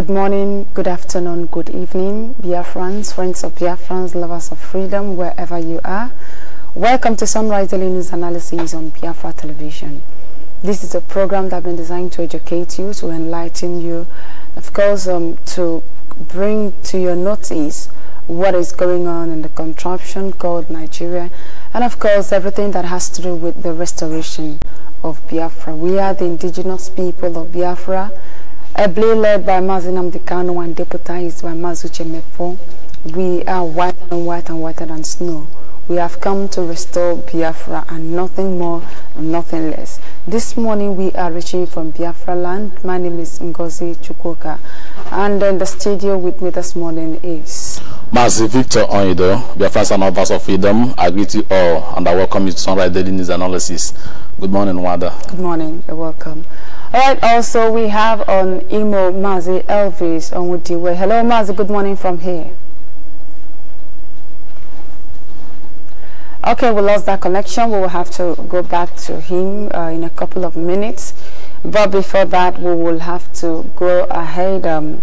Good morning, good afternoon, good evening, Biafrans, friends of Biafrans, lovers of freedom, wherever you are. Welcome to Sunrise Daily News Analysis on Biafra Television. This is a program that has been designed to educate you, to enlighten you, of course, um, to bring to your notice what is going on in the contraption called Nigeria, and of course, everything that has to do with the restoration of Biafra. We are the indigenous people of Biafra ably led by Mazinam Dikano and deputized by Mazuche Mefo, we are whiter and whiter and whiter than snow. We have come to restore Biafra and nothing more and nothing less. This morning we are reaching from Biafra land. My name is Ngozi Chukoka. And in the studio with me this morning is... Mazi Victor Onido, Biafra and Office of Freedom. I greet you all and I welcome you to Sunrise Daily News Analysis. Good morning, Wada. Good morning. You're welcome. All right, also we have on Imo Mazi Elvis on Wudiwe. Hello Mazi, good morning from here. Okay, we lost that connection. We will have to go back to him uh, in a couple of minutes. But before that, we will have to go ahead um,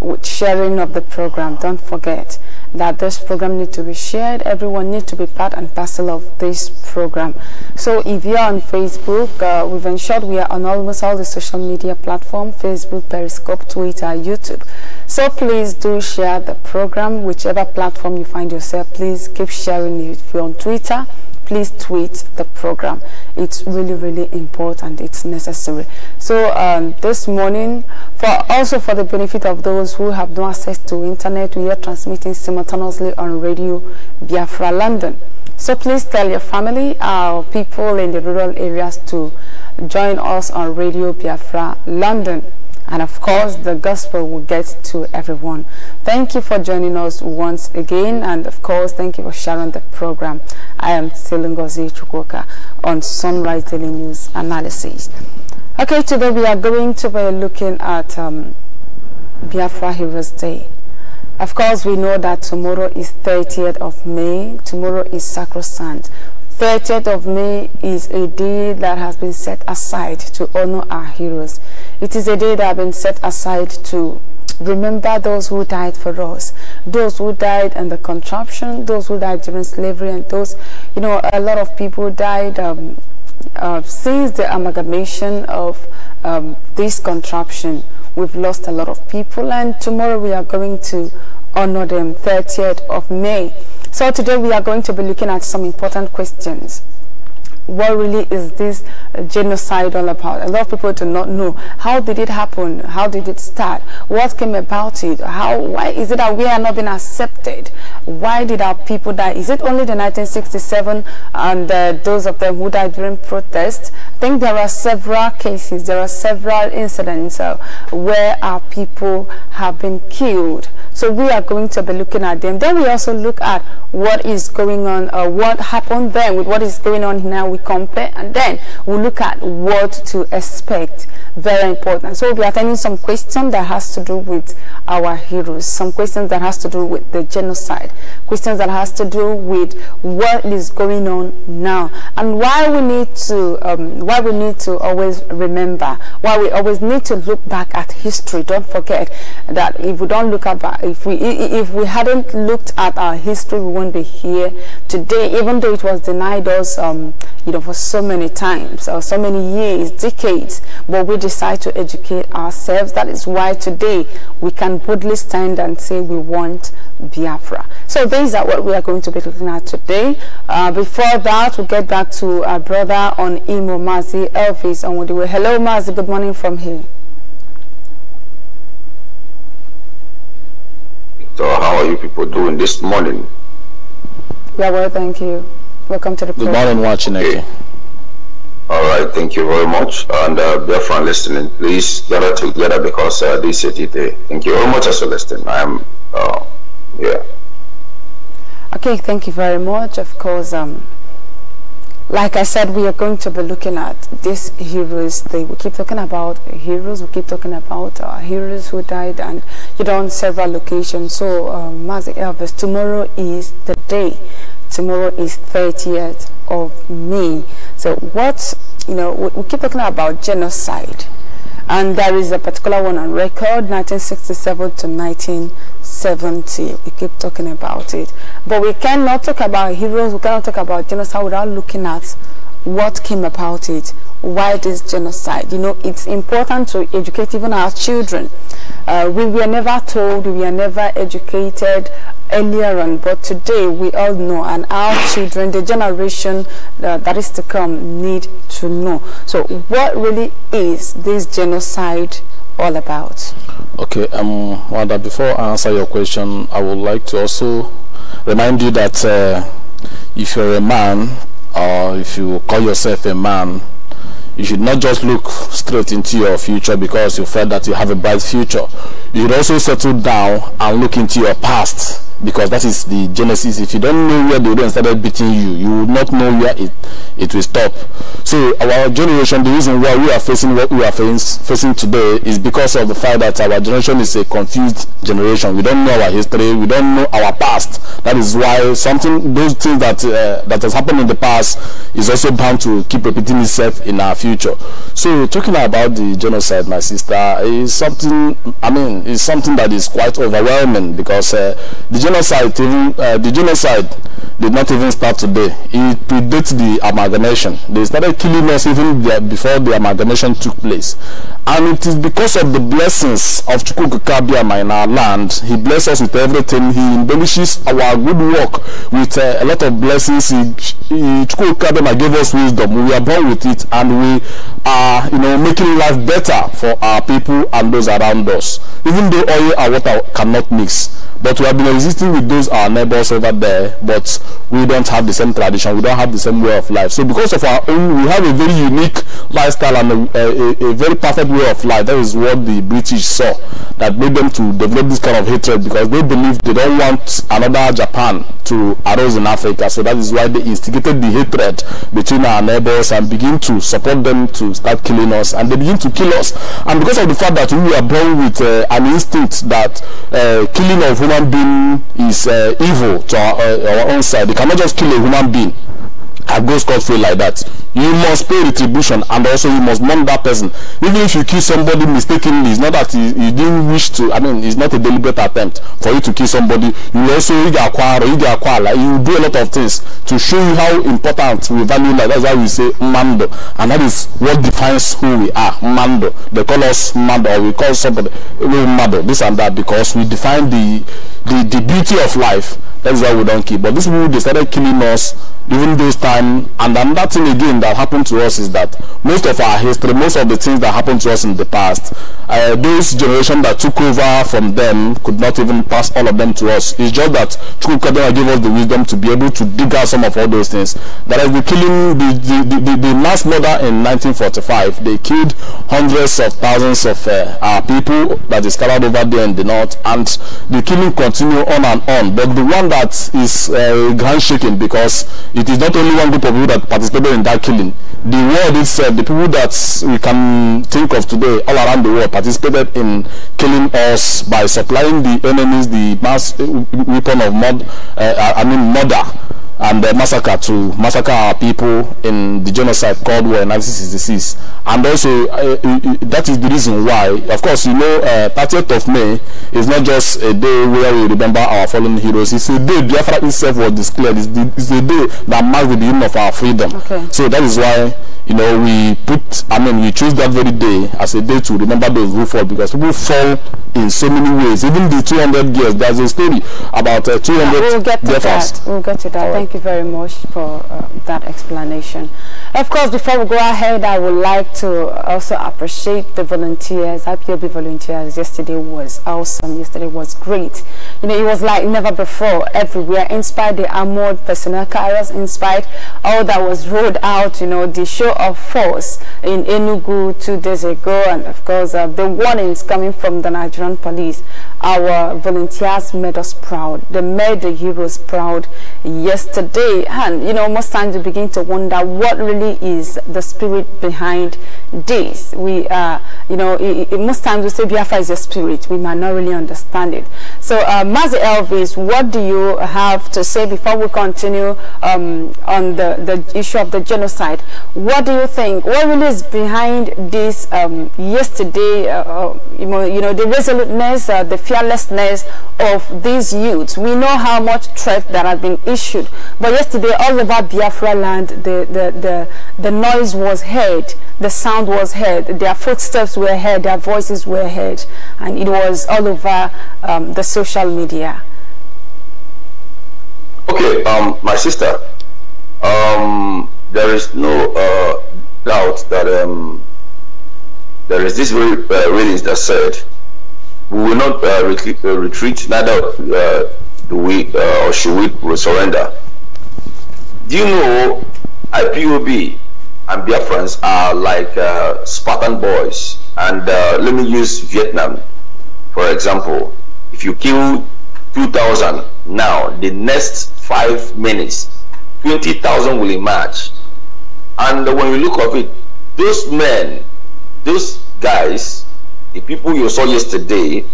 with sharing of the program. Don't forget that this program needs to be shared. Everyone needs to be part and parcel of this program. So if you're on Facebook, uh, we've ensured we are on almost all the social media platform, Facebook, Periscope, Twitter, YouTube. So please do share the program, whichever platform you find yourself, please keep sharing it. If you're on Twitter, please tweet the program. It's really, really important. It's necessary. So um, this morning, for also for the benefit of those who have no access to internet, we are transmitting simultaneously on Radio Biafra London. So please tell your family, our uh, people in the rural areas to join us on Radio Biafra London and of course the gospel will get to everyone thank you for joining us once again and of course thank you for sharing the program i am Selingozi Chukoka on sunrise daily news analysis okay today we are going to be looking at um, biafra heroes day of course we know that tomorrow is 30th of may tomorrow is sacrosanct 30th of May is a day that has been set aside to honor our heroes. It is a day that has been set aside to remember those who died for us, those who died in the contraption, those who died during slavery, and those, you know, a lot of people died um, uh, since the amalgamation of um, this contraption. We've lost a lot of people, and tomorrow we are going to honor them, 30th of May. So today we are going to be looking at some important questions what really is this genocide all about? A lot of people do not know. How did it happen? How did it start? What came about it? How? Why is it that we are not being accepted? Why did our people die? Is it only the 1967 and uh, those of them who died during protests? I think there are several cases, there are several incidents uh, where our people have been killed so we are going to be looking at them. Then we also look at what is going on, uh, what happened then with what is going on now. We compare and then we look at what to expect. Very important. So we'll be attending some questions that has to do with our heroes, some questions that has to do with the genocide, questions that has to do with what is going on now and why we need to um, why we need to always remember why we always need to look back at history don't forget that if we don't look at if we if we hadn't looked at our history we wouldn't be here today even though it was denied us um, you know for so many times or so many years decades but we decide to educate ourselves that is why today we can boldly stand and say we want Biafra so these are what we are going to be looking at today uh, before that we'll get back to our brother on Imo Mazi Elvis on Hello Mazi good morning from here So how are you people doing this morning? Yeah, well, thank you. Welcome to the program. Good morning, watching okay. All right, thank you very much. And uh, dear friend listening, please gather together because uh, this is it. Eh? Thank you very much as you listen. I am, uh, Okay, thank you very much. Of course, um, like I said, we are going to be looking at these heroes. They we keep talking about heroes. We keep talking about uh, heroes who died, and you know, on several locations. So, um, Mazi Elvis, tomorrow is the day. Tomorrow is 30th of May. So, what you know, we, we keep talking about genocide, and there is a particular one on record, 1967 to 19. 70 we keep talking about it but we cannot talk about heroes we cannot talk about genocide without looking at what came about it why this genocide you know it's important to educate even our children uh, we were never told we were never educated earlier on but today we all know and our children the generation uh, that is to come need to know so what really is this genocide all about? Okay, um, Wanda, before I answer your question, I would like to also remind you that uh, if you're a man or if you call yourself a man, you should not just look straight into your future because you felt that you have a bright future. You should also settle down and look into your past because that is the genesis if you don't know where the odon started beating you you will not know where it it will stop so our generation the reason why we are facing what we are face, facing today is because of the fact that our generation is a confused generation we don't know our history we don't know our past that is why something those things that uh, that has happened in the past is also bound to keep repeating itself in our future so talking about the genocide my sister is something i mean it's something that is quite overwhelming because uh, the genocide even uh, the genocide did not even start today. It predates the amalgamation. They started killing us even before the amalgamation took place. And it is because of the blessings of Chukukabia in our land. He blesses us with everything. He embellishes our good work with uh, a lot of blessings. He, gave us wisdom. We are born with it and we are, you know, making life better for our people and those around us. Even though oil and water cannot mix. But we have been resisting with those our neighbors over there, but we don't have the same tradition, we don't have the same way of life. So because of our own, we have a very unique lifestyle and a, a, a very perfect way of life. That is what the British saw that made them to develop this kind of hatred because they believe they don't want another Japan to arise in Africa. So that is why they instigated the hatred between our neighbors and begin to support them to start killing us. And they begin to kill us. And because of the fact that we are born with uh, an instinct that uh, killing of human being is uh, evil to our, uh, our own side. They cannot just kill a human being and go scot-free like that. You must pay retribution and also you must mourn that person. Even if you kill somebody mistakenly, it's not that you, didn't wish to, I mean, it's not a deliberate attempt for you to kill somebody. You also, acquire, you acquire, like, you do a lot of things to show you how important we value life. That's why we say mando. And that is what defines who we are, mando. They call us mando or we call somebody mando, this and that, because we define the the, the beauty of life. That's why we don't kill. But these people, they started killing us during those time. And another thing again that happened to us is that most of our history, most of the things that happened to us in the past, uh, those generation that took over from them could not even pass all of them to us. It's just that Chukwukadema gave us the wisdom to be able to dig out some of all those things. That is the killing, the, the, the, the mass murder in 1945, they killed hundreds of thousands of uh, our people that is scattered over there in the north. And the killing continued continue on and on. But the one that is uh, handshaking because it is not only one group of people that participated in that killing. The world itself, the people that we can think of today all around the world participated in killing us by supplying the enemies the mass uh, weapon of mud, uh, I mean murder and the massacre to massacre our people in the genocide called war in 1966 and also uh, uh, uh, that is the reason why of course you know uh, 30th of may is not just a day where we remember our fallen heroes it's a day biafra itself was declared it's the, it's the day that marks the beginning of our freedom okay. so that is why you know we put i mean we choose that very day as a day to remember those who fall because people fall in so many ways even the 200 years there's a story about uh, 200 yeah, we'll get to that we'll get to that Thank Thank you very much for uh, that explanation. Of course, before we go ahead, I would like to also appreciate the volunteers. IPOB volunteers yesterday was awesome. Yesterday was great. You know, it was like never before everywhere. Inspired the armored personnel carriers, inspired all that was rolled out, you know, the show of force in Enugu two days ago. And of course, uh, the warnings coming from the Nigerian police. Our volunteers made us proud. They made the heroes proud yesterday today and you know most times we begin to wonder what really is the spirit behind this we uh you know it, it, most times we say biafra is a spirit we might not really understand it so uh mazi elvis what do you have to say before we continue um, on the the issue of the genocide what do you think what really is behind this um, yesterday uh, uh you, know, you know the resoluteness uh, the fearlessness of these youths we know how much threat that has been issued but yesterday, all over Biafra land, the, the, the, the noise was heard, the sound was heard, their footsteps were heard, their voices were heard, and it was all over um, the social media. Okay, um, my sister, um, there is no uh, doubt that um, there is this very uh, that said we will not uh, retreat, uh, retreat, neither uh, do we uh, or should we surrender. Do you know IPOB and their friends are like uh, Spartan boys? And uh, let me use Vietnam for example. If you kill 2,000 now, the next five minutes, 20,000 will emerge. And when you look at it, those men, those guys, the people you saw yesterday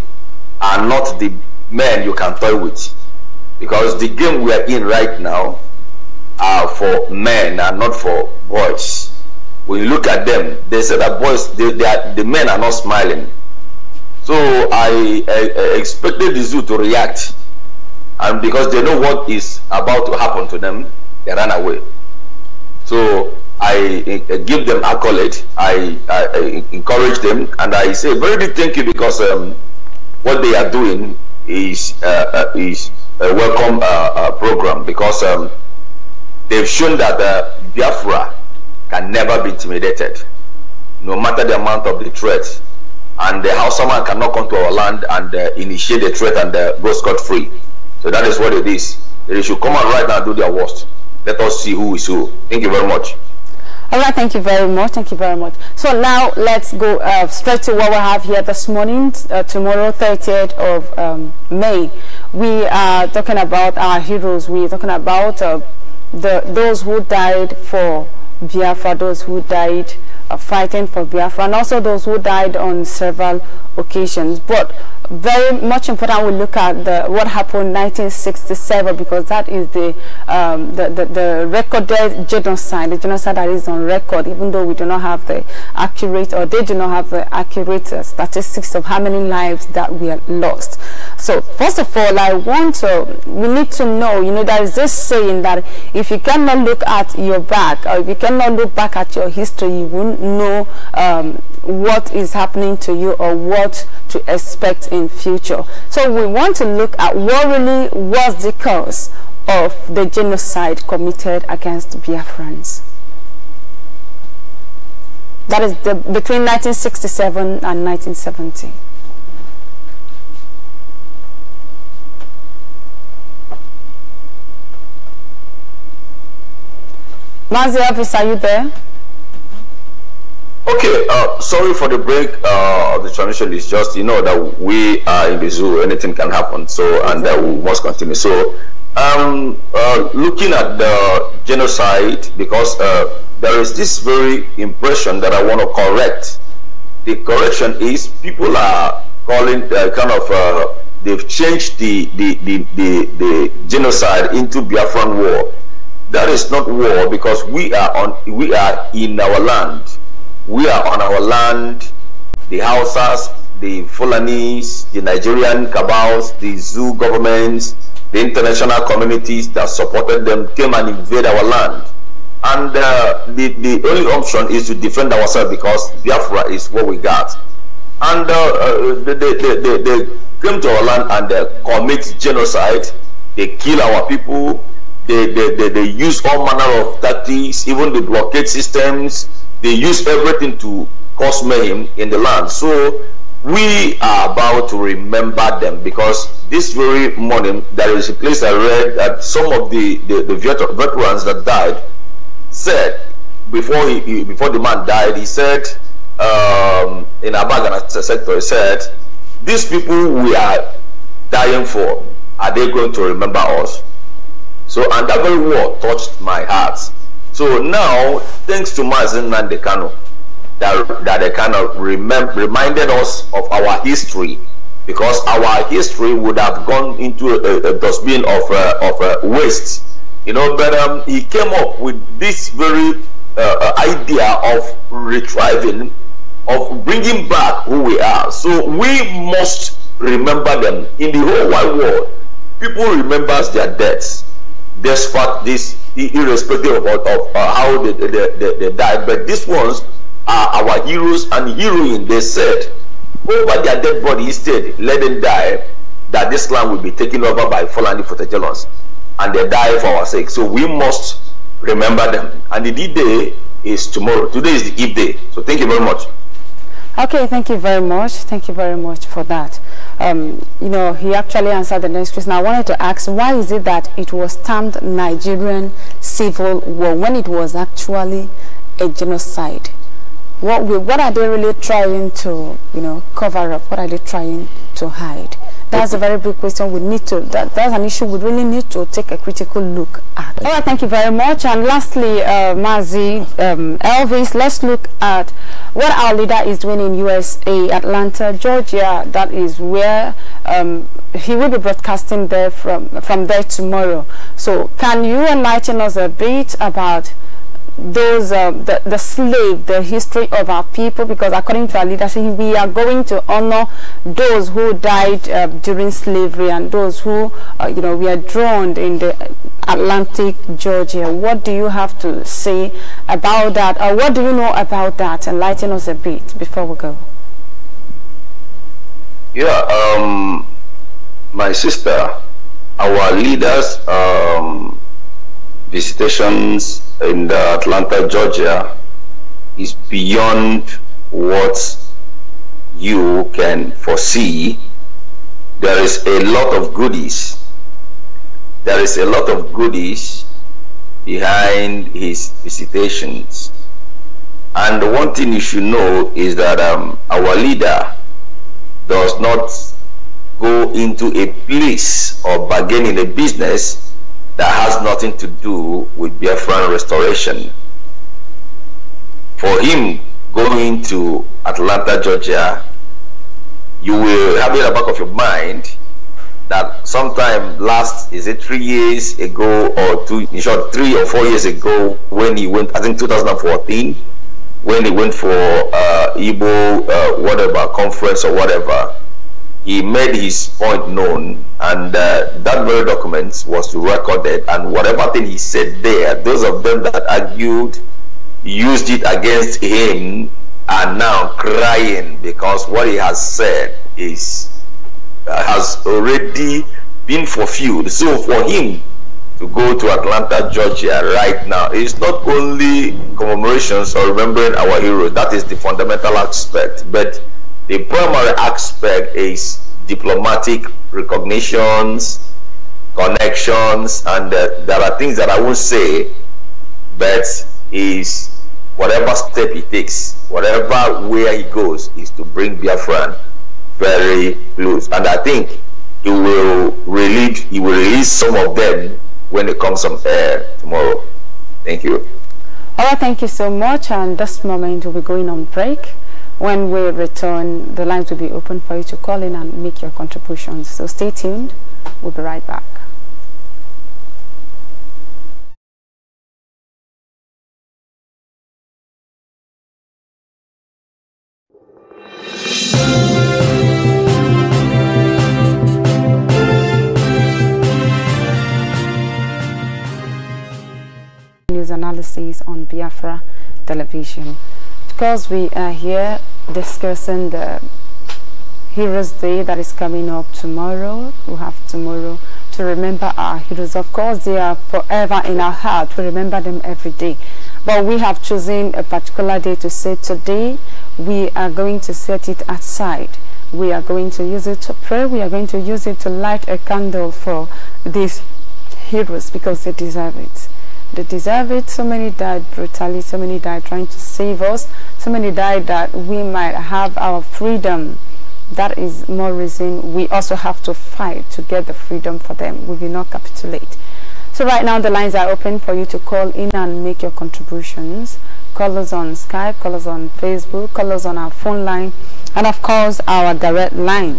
are not the men you can toy with. Because the game we are in right now are for men and not for boys. When you look at them, they say that boys, they, they are, the men are not smiling. So I, I, I expected the zoo to react, and because they know what is about to happen to them, they ran away. So I, I give them accolade, I, I, encourage them, and I say very big thank you because um, what they are doing is uh, uh is a welcome uh, uh, program because. Um, They've shown that the Biafra can never be intimidated, no matter the amount of the threat. And the Hausa man cannot come to our land and uh, initiate the threat and uh, go scot free. So that is what it is. They should come out right now and do their worst. Let us see who is who. Thank you very much. All right, thank you very much. Thank you very much. So now let's go uh, straight to what we have here this morning, uh, tomorrow, 30th of um, May. We are talking about our heroes. We are talking about uh, the, those who died for Biafra, those who died uh, fighting for Biafra and also those who died on several occasions. But very much important we look at the, what happened in 1967 because that is the, um, the, the, the, recorded genocide, the genocide that is on record even though we do not have the accurate or they do not have the accurate uh, statistics of how many lives that we have lost. So first of all, I want to, we need to know, you know, there is this saying that if you cannot look at your back or if you cannot look back at your history, you will know um, what is happening to you or what to expect in future. So we want to look at what really was the cause of the genocide committed against Biafrans. That is the, between 1967 and 1970. Mazi Elvis, are you there? Okay, uh, sorry for the break. Uh, the transition is just, you know, that we are in the zoo, anything can happen, so, and that uh, we must continue. So, um, uh, looking at the genocide, because uh, there is this very impression that I want to correct. The correction is people are calling uh, kind of, they've changed the, the, the, the, the genocide into Biafran war. That is not war because we are on, we are in our land we are on our land, the Hausas, the Fulanis, the Nigerian cabals, the zoo governments, the international communities that supported them came and invade our land. And uh, the, the only option is to defend ourselves because Biafra is what we got. And uh, uh they, they, they, they, came to our land and they commit genocide. They kill our people. They, they, they, they use all manner of tactics, even the blockade systems they use everything to cause mayhem in the land. So we are about to remember them because this very morning there is a place I read that some of the, the, the veterans that died said before he before the man died, he said um, in Abagana sector, he said, These people we are dying for, are they going to remember us? So and that very word touched my heart so now, thanks to Mazin Nandekano, that, that they kind of remem- reminded us of our history because our history would have gone into a, a dustbin of, uh, of uh, waste. You know, but um, he came up with this very uh, uh idea of retrieving, of bringing back who we are. So we must remember them. In the whole wide world, people remembers their deaths despite this irrespective of, of, uh, how they, they, they, they died. But these ones are our heroes and heroines. They said, over their dead body instead, let them die, that this land will be taken over by Fulani Futajalons. And they die for our sake. So we must remember them. And the D day is tomorrow. Today is the Eve day. So thank you very much. Okay, thank you very much. Thank you very much for that um, you know, he actually answered the next question. I wanted to ask, why is it that it was termed Nigerian Civil War when it was actually a genocide? What, what are they really trying to, you know, cover up? What are they trying to hide? That's a very big question. We need to, that, that's an issue we really need to take a critical look at. All right, thank you very much. And lastly, uh, Mazi, um, Elvis, let's look at what our leader is doing in USA, Atlanta, Georgia. That is where um, he will be broadcasting there from, from there tomorrow. So can you enlighten us a bit about those uh, the, the slave the history of our people because according to our leadership we are going to honor those who died uh, during slavery and those who uh, you know we are drowned in the Atlantic Georgia what do you have to say about that or what do you know about that enlighten us a bit before we go yeah um my sister our leaders um visitations in Atlanta, Georgia is beyond what you can foresee. There is a lot of goodies. There is a lot of goodies behind his visitations. And one thing you should know is that um, our leader does not go into a place or bargain in a business that has nothing to do with Biafran restoration. For him going to Atlanta, Georgia, you will have in the back of your mind that sometime last is it three years ago or two in short three or four years ago when he went I think 2014 when he went for uh Igbo uh, whatever conference or whatever he made his point known and uh, that very document was recorded and whatever thing he said there those of them that argued used it against him are now crying because what he has said is uh, has already been fulfilled so for him to go to Atlanta, Georgia right now it's not only commemorations or remembering our heroes, that is the fundamental aspect, but the primary aspect is diplomatic recognitions, connections, and uh, there are things that I will not say, but is whatever step he takes, whatever where he goes, is to bring Biafran very close. And I think he will release he will release some of them when it comes on air tomorrow. Thank you. All right, thank you so much. And this moment we'll be going on break. When we return, the lines will be open for you to call in and make your contributions. So stay tuned. We'll be right back. analysis on Biafra television. Because we are here discussing the Heroes Day that is coming up tomorrow. We have tomorrow to remember our heroes. Of course, they are forever in our heart. We remember them every day. But we have chosen a particular day to say today we are going to set it aside. We are going to use it to pray. We are going to use it to light a candle for these heroes because they deserve it they deserve it. So many died brutally, so many died trying to save us, so many died that we might have our freedom. That is more reason we also have to fight to get the freedom for them. We will not capitulate. So right now the lines are open for you to call in and make your contributions. Call us on Skype, call us on Facebook, call us on our phone line, and of course our direct line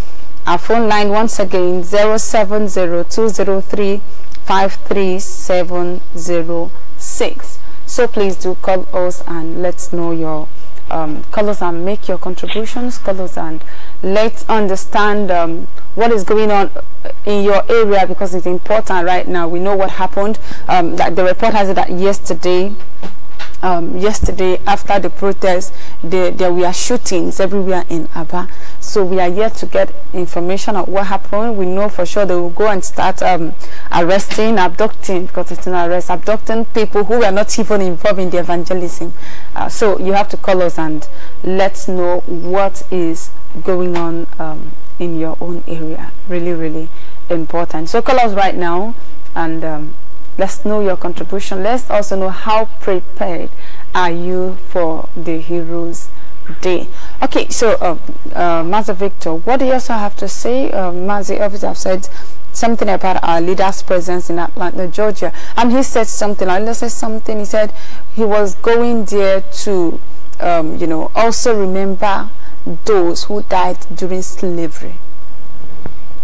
Our phone line once again 070203 So please do call us and let's know your um, colors and make your contributions colors and let's understand um, what is going on in your area because it's important right now we know what happened um, that the report has it that yesterday um, yesterday after the protest, there, were shootings everywhere in Aba. So we are here to get information of what happened. We know for sure they will go and start um, arresting, abducting, because it's an arrest, abducting people who were not even involved in the evangelism. Uh, so you have to call us and let's know what is going on um, in your own area. Really, really important. So call us right now and um, Let's know your contribution. Let's also know how prepared are you for the Heroes Day. Okay, so uh, uh Master Victor, what do you also have to say? Uh, um, Mazi Elvis have said something about our leader's presence in Atlanta, Georgia, and he said something. I said something. He said he was going there to, um, you know, also remember those who died during slavery.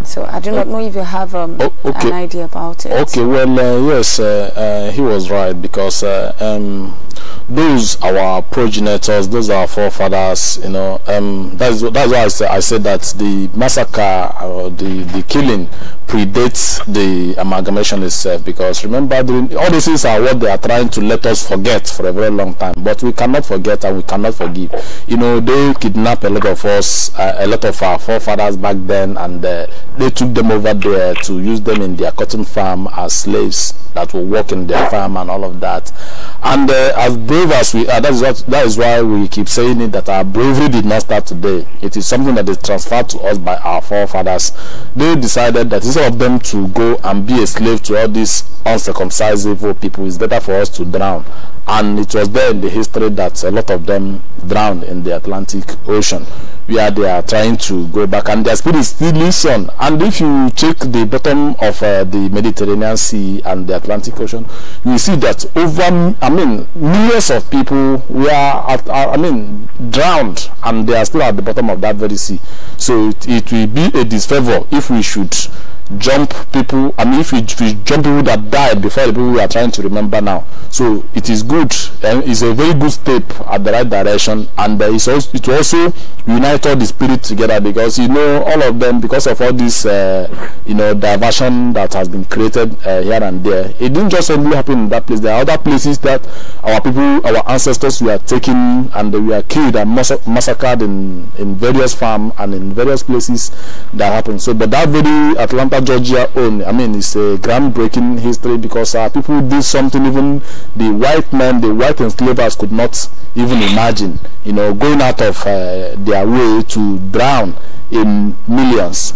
So I do not oh. know if you have um, oh, okay. an idea about it. Okay, well, uh, yes, uh, uh, he was right because uh, um, those our progenitors, those our forefathers, you know, um, that's that's why I, I said that the massacre, or the the killing predates the amalgamation itself because remember during, all these things are what they are trying to let us forget for a very long time but we cannot forget and we cannot forgive you know they kidnapped a lot of us uh, a lot of our forefathers back then and uh, they took them over there to use them in their cotton farm as slaves that will work in their farm and all of that. And uh, as brave as we are, that is, what, that is why we keep saying it, that our bravery did not start today. It is something that is transferred to us by our forefathers. They decided that instead of them to go and be a slave to all these uncircumcised evil people, it's better for us to drown. And it was there in the history that a lot of them drowned in the Atlantic Ocean where they are trying to go back and their speed is still listen and if you check the bottom of uh, the mediterranean sea and the atlantic ocean you see that over i mean millions of people were at, are, uh, i mean drowned and they are still at the bottom of that very sea so it, it will be a disfavor if we should jump people. I mean, if we, if we jump people that died before the people we are trying to remember now. So it is good and it's a very good step at the right direction. And uh, it's also, it also unite all the spirit together because you know all of them because of all this uh, you know diversion that has been created uh, here and there. It didn't just only happen in that place. There are other places that our people, our ancestors, were taken and we were killed and massacred in in various farms and in various places that happened. So, but that very Atlanta Atlanta, Georgia own. I mean, it's a groundbreaking history because uh, people did something even the white men, the white enslavers could not even imagine. You know, going out of uh, their way to drown in millions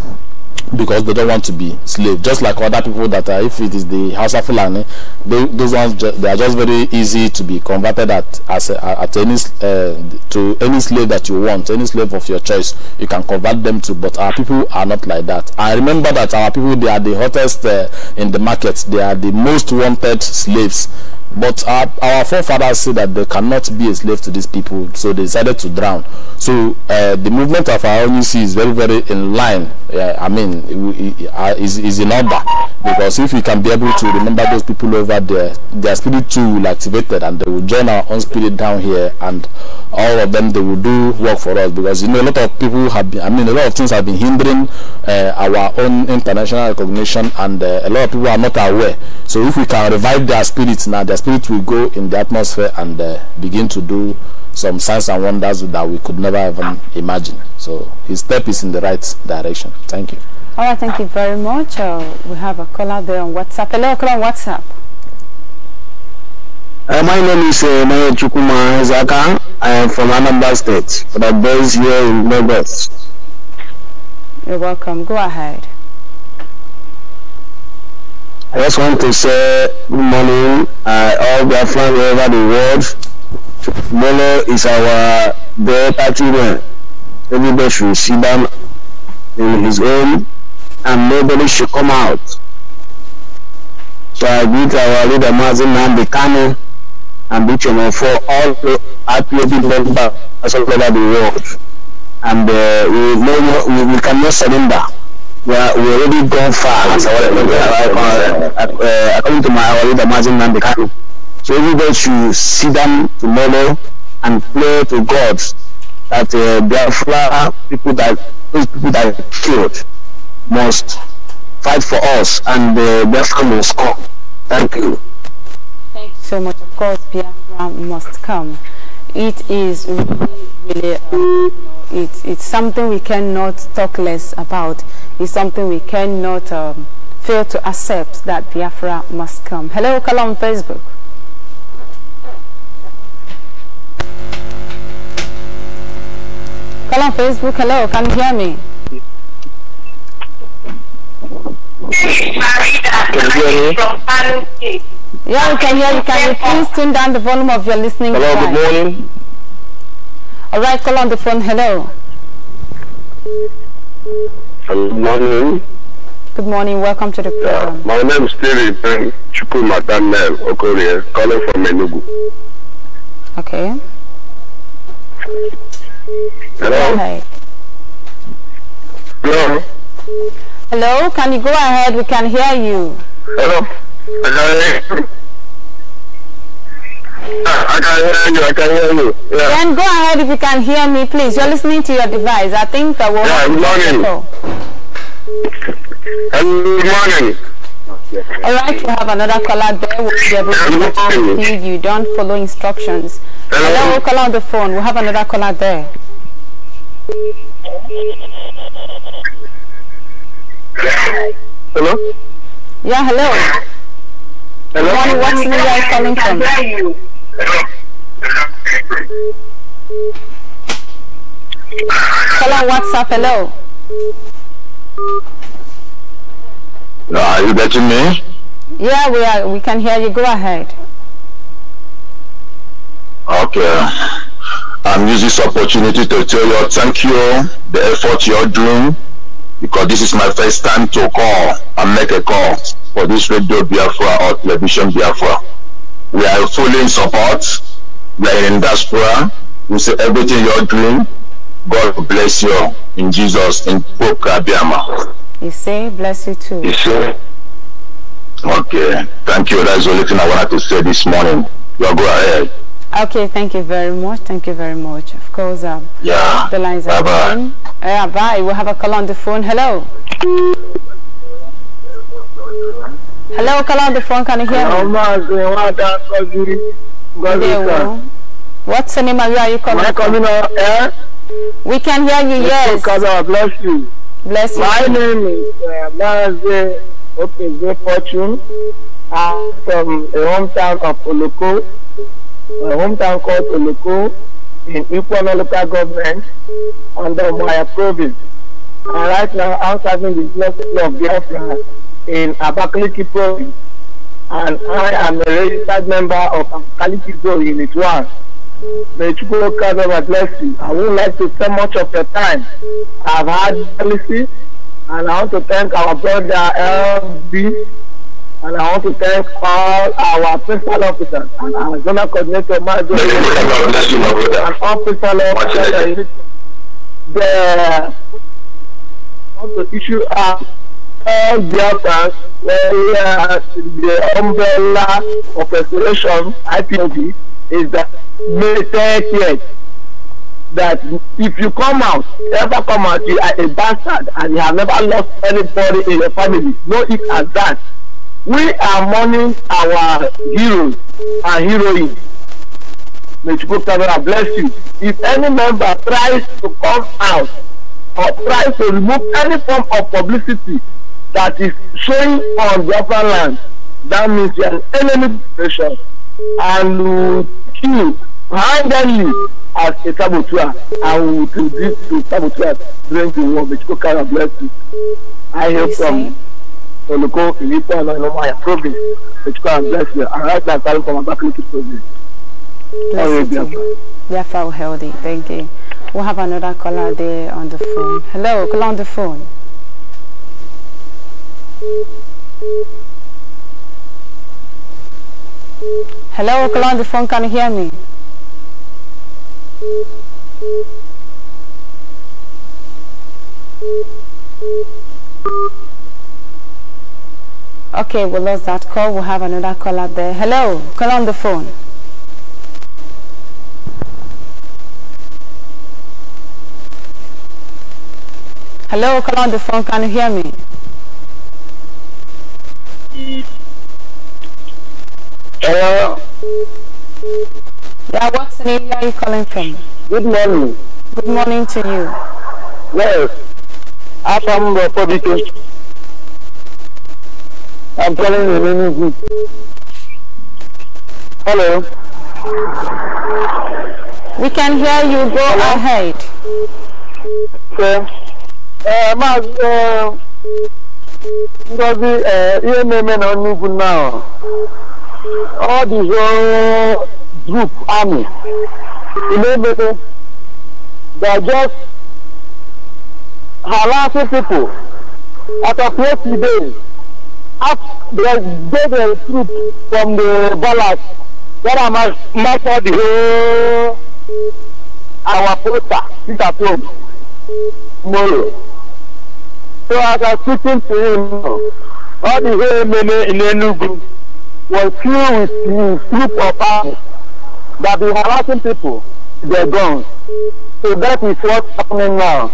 because they don't want to be slave just like other people that are if it is the house of Fulani they, those ones they are just very easy to be converted at as a, at any uh, to any slave that you want any slave of your choice you can convert them to but our people are not like that I remember that our people they are the hottest uh, in the market they are the most wanted slaves but our, our forefathers said that they cannot be a slave to these people, so they decided to drown. So uh, the movement of our ONUC is very, very in line. I mean, uh, is, is in order. Because if we can be able to remember those people over there, their spirit too will activate and they will join our own spirit down here and all of them, they will do work for us. Because, you know, a lot of people have been, I mean, a lot of things have been hindering uh, our own international recognition and uh, a lot of people are not aware. So if we can revive their spirits now, their spirit will go in the atmosphere and uh, begin to do some signs and wonders that we could never even imagine. So his step is in the right direction. Thank you. All right, thank you very much. Uh, we have a caller there on WhatsApp. Hello, caller on WhatsApp. Uh, my name is uh, Maya Chukuma Zaka. I am from Anambra State, but I'm based here in Lagos. You're welcome. Go ahead. I just want to say good morning uh, all the all over the world. Molo is our day party man. Everybody should see them in his home and nobody should come out. So I greet our leader Mazin Nambi Kano and Bichomo for all the IPOB members all over the world. And uh, we, we, we cannot surrender we, are, we already gone far. As uh, uh, according to my Awalida Mazin Nambikano. So everybody should sit down tomorrow and pray to God that uh, Biafra people that those people that are killed must fight for us and uh, Biafra must come. Thank you. Thank you so much. Of course, Biafra must come. It is really, really. Uh, it, it's something we cannot talk less about. It's something we cannot um, fail to accept that Biafra must come. Hello, Kala on Facebook. Kala on Facebook, hello, can you hear me? Can you hear me? Yeah, we can hear you. Can you please turn down the volume of your listening Hello, good morning. Alright, call on the phone. Hello. Good morning. Good morning. Welcome to the program. Yeah, my name is Terry Ben Chukuma Daniel Okorie, calling from Enugu. Okay. Hello. Hello. Hello. Can you go ahead? We can hear you. Hello. Hello. Ah, I can hear you. I can hear you. Yeah. Then go ahead if you can hear me, please. You're listening to your device. I think that will. Yeah. Good morning. Good morning. All right, we have another caller there. We'll be able to until you don't follow instructions. Hello, Hello call on the phone. We have another caller there. Hello. Yeah, hello. Hello. What's what are calling from? Hello, what's up? Hello. Ah, are you getting me? Yeah, we are. We can hear you. Go ahead. Okay. I'm using this opportunity to tell you thank you the effort you're doing because this is my first time to call and make a call for this radio Biafra or television Biafra. We are fully in support. We are in diaspora. We say everything you're doing, God bless you in Jesus, in Pokabiama. You say, bless you too. You say, okay, thank you. That's the only thing I wanted to say this morning. You go ahead. Okay, thank you very much. Thank you very much. Of course, um, yeah. the lines bye are bye. open. Yeah, bye. We'll have a call on the phone. Hello hello Kalande phone can you hear me what's the name of you are you coming, Am coming on air? Eh? we can hear you yes God bless you bless you my name is uh, Blase fortune I'm from a hometown of Oloko a hometown called Oloko in Ipono local government under Maya province and right now I'm serving the blessing of Biafra in Abakaliki province and I am a registered member of Abakaliki Pro Unit 1. May Chukwu God bless you. I would like to spend much of your time. I've had policy and I want to thank our brother LB and I want to thank all our principal officers and our zonal coordinator, Major, and all principal officers. The, I want to issue out all Biafrans were uh, the umbrella of restoration IPOB is that May 30th that if you come out, ever come out, you are a bastard and you have never lost anybody in your family. No, it as that. We are mourning our heroes and heroines. May Chukwukamera bless you. If any member tries to come out or tries to remove any form of publicity that is showing on the upper land, that means you are an enemy nation and will kill handle you as a saboteur and will do this to saboteurs during the war. But you kind of bless you. I hear from Olùkọ́ Ìyípo and Ọlọ́mọ̀yà province. May you kind bless you. And right now, I'm calling from Abakaliki you. Bless you. Therefore, healthy. Thank you. We'll have another caller there on the phone. Hello, call on the phone. Hello, Okala on the phone, can you hear me? Okay, we lost that call. We'll have another call out there. Hello, call on the phone. Hello, call on the phone. Can you hear me? Hello. Yeah, the name are you calling from? Good morning. Good morning to you. Yes. I'm from public. I'm calling the name Hello. We can hear you. Go Hello? ahead. Okay. Uh, Mark, uh, ngozi eh, ihe na-eme na n'ugwu now ọ dịzọ group army na-emere they are just harassing people after twenty days after they get the troop from the ballast that are master the whole our poster peter tom tomorrow. So as I was speaking to him, all the whole men in Enugu were filled with the group of arms that be harassing people, their guns. So that is what's happening now.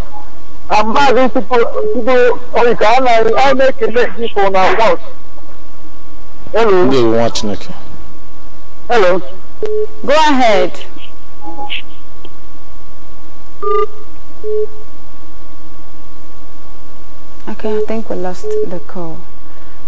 I'm asking people, people, okay, oh, I'll make a make people now watch. Hello. They watch, Nicky. Hello. Go ahead. Okay, I think we lost the call.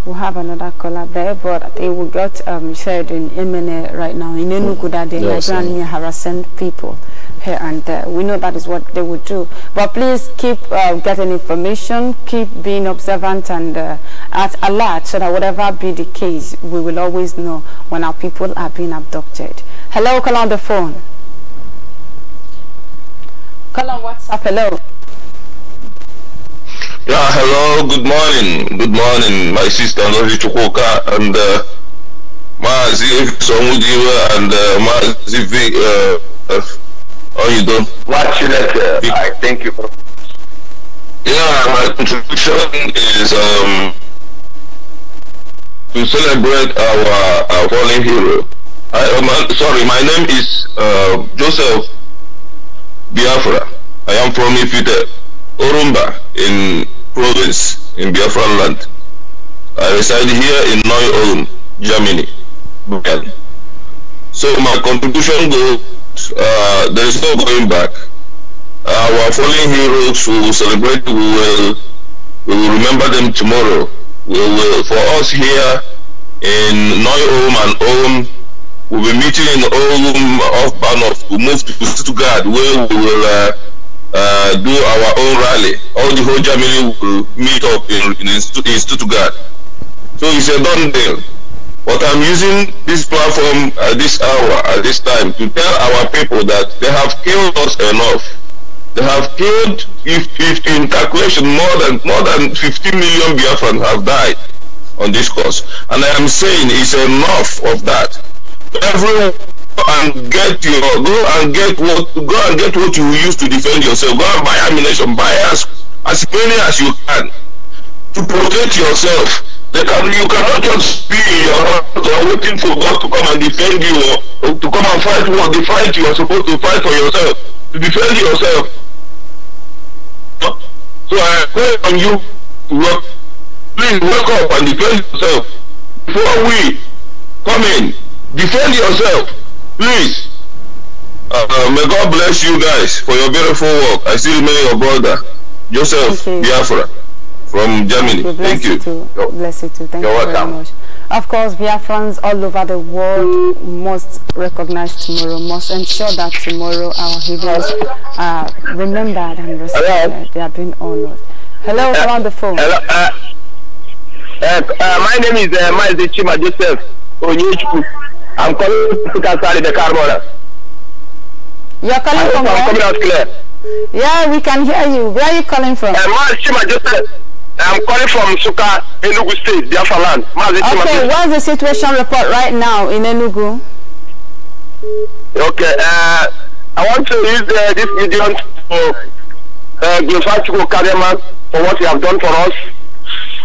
We'll have another caller there, but I think we got um, shared in MNA right now. In Enugu, that the yes, harassing people here and there. We know that is what they would do. But please keep uh, getting information, keep being observant and uh, at alert so that whatever be the case, we will always know when our people are being abducted. Hello, call on the phone. Call on WhatsApp. Hello. Yeah, hello, good morning. Good morning, my sister Ngozi Chukoka, and uh, Maazi Somudiwa and uh, Maazi V. Uh, uh, how you doing? Much later. I thank you. Yeah, my contribution is um, to celebrate our, our fallen hero. I, um, sorry, my name is uh, Joseph Biafra. I am from Ifite, Orumba, in province in Biafran land. I reside here in Neu-Ulm, Germany. So my contribution goes, uh, there is no going back. Our fallen heroes, we will celebrate, we will, we will remember them tomorrow. We will, for us here in Neu-Ulm and Ulm, we'll be meeting in Ulm off Bahnhof. We move to Stuttgart where we will uh, uh, do our own rally. All the whole Germany will meet up in, in, in Stuttgart. So it's a done deal. But I'm using this platform at this hour, at this time, to tell our people that they have killed us enough. They have killed, if, if in calculation, more than more than 15 million Biafrans have died on this course. And I am saying it's enough of that. Everyone and get your go and get what go and get what you use to defend yourself. Go and buy ammunition, buy as as many as you can to protect yourself. They can you cannot just be in your house or waiting for God to come and defend you or, or to come and fight what the fight you are supposed to fight for yourself to defend yourself. So I call on you, please wake up and defend yourself before we come in. Defend yourself please, uh, um, may God bless you guys for your beautiful work. I still remain your brother, Joseph you. Biafra from Germany. Thank you. Bless Thank you. you too. Bless you too. Thank You're you very welcome. much. Of course, Biafrans all over the world must recognize tomorrow, must ensure that tomorrow our heroes are remembered and respected. They are being honored. Hello, uh, on the phone. Hello, uh, uh, uh my name is uh, Mazi Joseph Onyechukwu. I'm calling Suka Sali the Carmona. You're calling from I'm where? coming out clear. Yeah, we can hear you. Where are you calling from? Uh, just I'm calling from Suka, Enugu State, Biafra land. Okay, what's the situation report right now in Enugu? Okay, uh, I want to use uh, this medium to uh, glorify Chico Kadema for what you have done for us.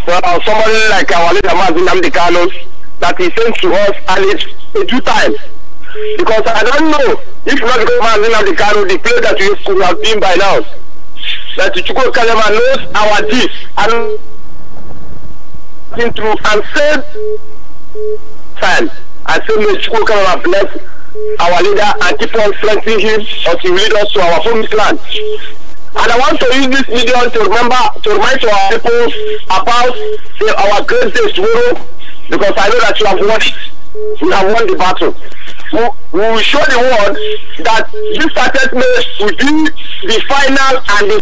Well, somebody like our leader, Mazin Namdekano, that he sent to us and it's due time. Because I don't know if not the government in the car, the place that we should have been by now. That Chukwu Kalema knows our deeds and through and said time and said may Chukwu Kalema bless our leader and keep on strengthening him as he lead us to our home land. And I want to use this medium to remember to remind our people about the, our great day tomorrow because I know that you have won it. You have won the battle. We will show the world that this assessment will be the final and the,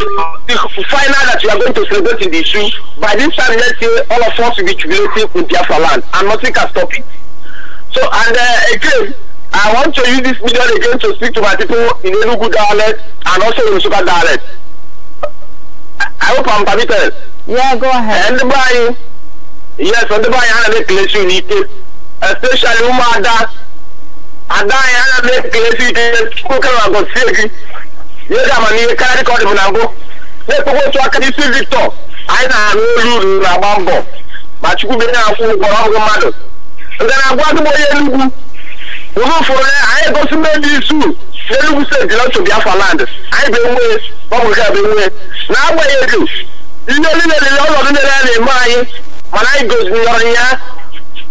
the final that you are going to celebrate in the issue. By this time next year, all of us will be jubilating in Biafra land, and nothing can stop it. So, and uh, again, I want to use this medium again to speak to my people in Enugu dialect and also in Sugar dialect. I hope I'm permitted. Yeah, go ahead. And by yes ọdịbe anyị ana na ekelesi n'ike especially ụmụada ada anyị ana m ekelesi ike nwoke na gọzie gị nye gị amamihe karịa ka ọ dị m na mbụ na-ekpekwa otu aka isi victor anyị na-arụ olu uru na-agba mbọ ma chukwu be na-akwụ mmadụ nke na-agwa adịgbọ onye enugwu ụrụ ụfọdụ anyị egosi mmebi isu n'enugwu steeti lọtụ biafra land anyị bụ enwe ọbụ nke bụ enwee. na-agbanyeghị ihe niile niile ọnọdụ niile a na-eme anyị mana anyị goziri ya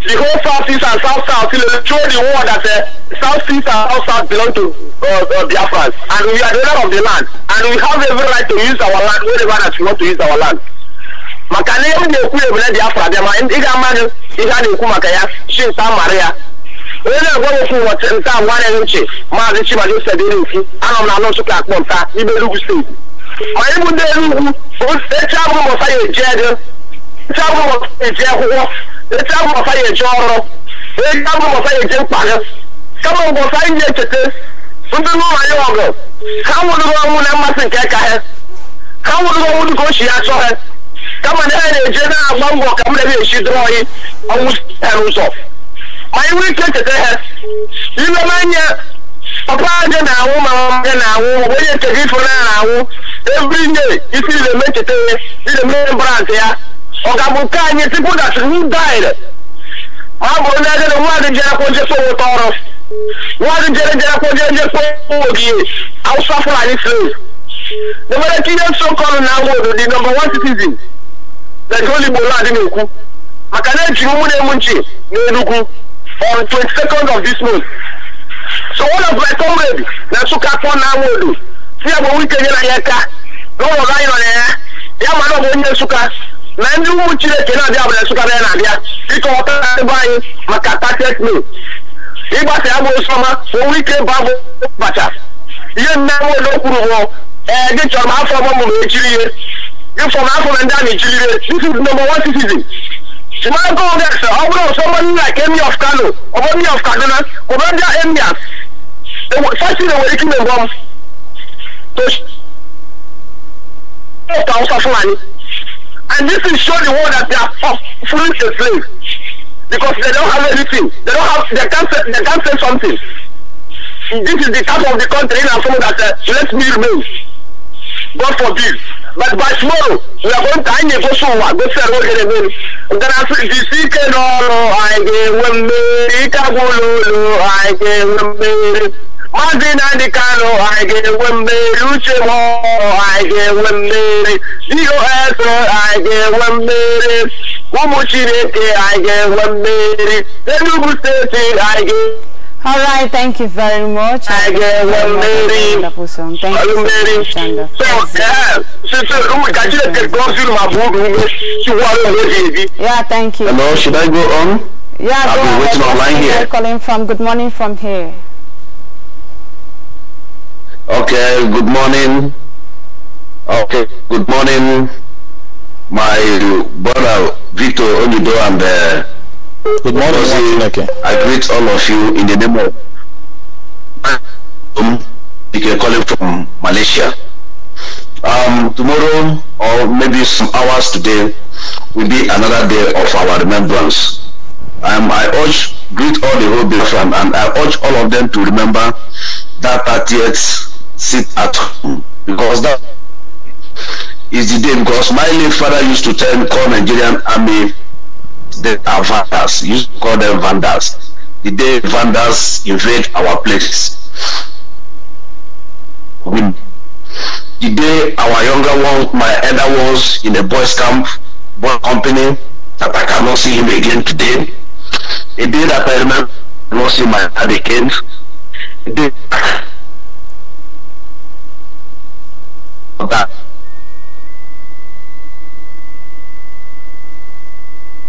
the whole south east and south south show the world that uh, south east and south south belong to uh, uh, Biafrans and we are the owner of the land and we have every right to use our land wherever that we want to use our land maka na ihe m na-ekwu ya Biafra bịa ma ị ga-amadụ ihe a na-ekwu maka ya chi nta mara ya onye na-egwe nwoke ụbọchị nta nwanne m nchi maazị Chibadi Osedere Nfu anọ m na Nsụka akpọ nta n'ime Enugu steeti ma anyị bụ ndị Enugu echi abụ mụsa ya eje ego etu abụrụ ọfa eji akwụkwọ ya eji ọrụ etu abụrụ ọfa ya mkpa mkpagha kama mgbe anyị na ndị n'ụlọ anyị ọgụ ha na mmasị nke ka ha ha nwụrụgo ọnwụ dịka ochi ya chọọ ha kama na ha na-eje na-agba ka m ebe ike papa anwụ ma na isi ị na eme brand ọ̀gágun ká ẹni tí kò dàtí who died máa bọ̀ ní ẹgbẹ́ wọn àti jẹrẹ kó tọrọ wọn àti jẹrẹ jẹrẹ kó jẹ jẹ sówó òdìye haúsá slave the way kí yẹn so kọlu náà wọ odò di number one citizen lẹ́yìn olùgbò láti ní òkú màkà náà jì mú ní emu nchè ní enugu on twenty second of this month so one of my comrade na nsukka kpọ náà wọ odò tí a bọ̀ wíkẹ́ yẹn na yẹn ká lọ́wọ́ nọ na yẹn yà máa náà onye nsukka na ndị ụmụ chineke na-abịa abụla nsụkarị na-abịa dịka ọta ebe anyị maka tatet mil ịgbasa ya bụ nsọma ka onwe ike ba bụ bacha ihe mmenwe na okwuru bụ ee gị chọrọ m afọ ọgbọ mụrụ echiri ihe gị fọrọ afọ na ndị a na-echiri ihe this is number one citizen simago rex ọ bụrụ ụsọma nna ka emi of kano ọ bụ emi of kaduna kpọrọ ndị emias fasin enwere ike ime mbọ m to ọka ụsa fulani And this will show the world that they are fully a slave because they don't have anything. They don't have. They can't. Say, they can't say something. This is the type of the country in Afro that uh, let me remain. God forbid. But by tomorrow, we are going to hang a go somewhere. Go say road again. Then I say, "This is no, no, I get one, I get one, I get one." ọ dị na ndị Kano anyị ga-enwe mmeri uche m anyị ga-enwe mmeri DOS anyị ga-enwe mmeri ụmụ Chineke anyị ga-enwe mmeri Enugu steeti right, thank you very much. I get one Mary. Song. Thank you yeah, thank you. Hello, should I go on? Yeah, i will go been waiting online here. Calling from. Good morning from here. Okay, good morning. Okay, good morning, my brother Victor Onido and uh, good morning. I greet all of you in the name of um, you calling from Malaysia. Um, tomorrow or maybe some hours today will be another day of our remembrance. Um, I urge greet all the whole from and I urge all of them to remember that 30th sit at home because that is the day. Because my late father used to tell me, call Nigerian army, they are vandals. to call them vandals. The day vandals invade our places. We, the day our younger one, my elder ones in a boys camp, boy company, that I cannot see him again today. The day that I remember not see my dad again. The day Okay.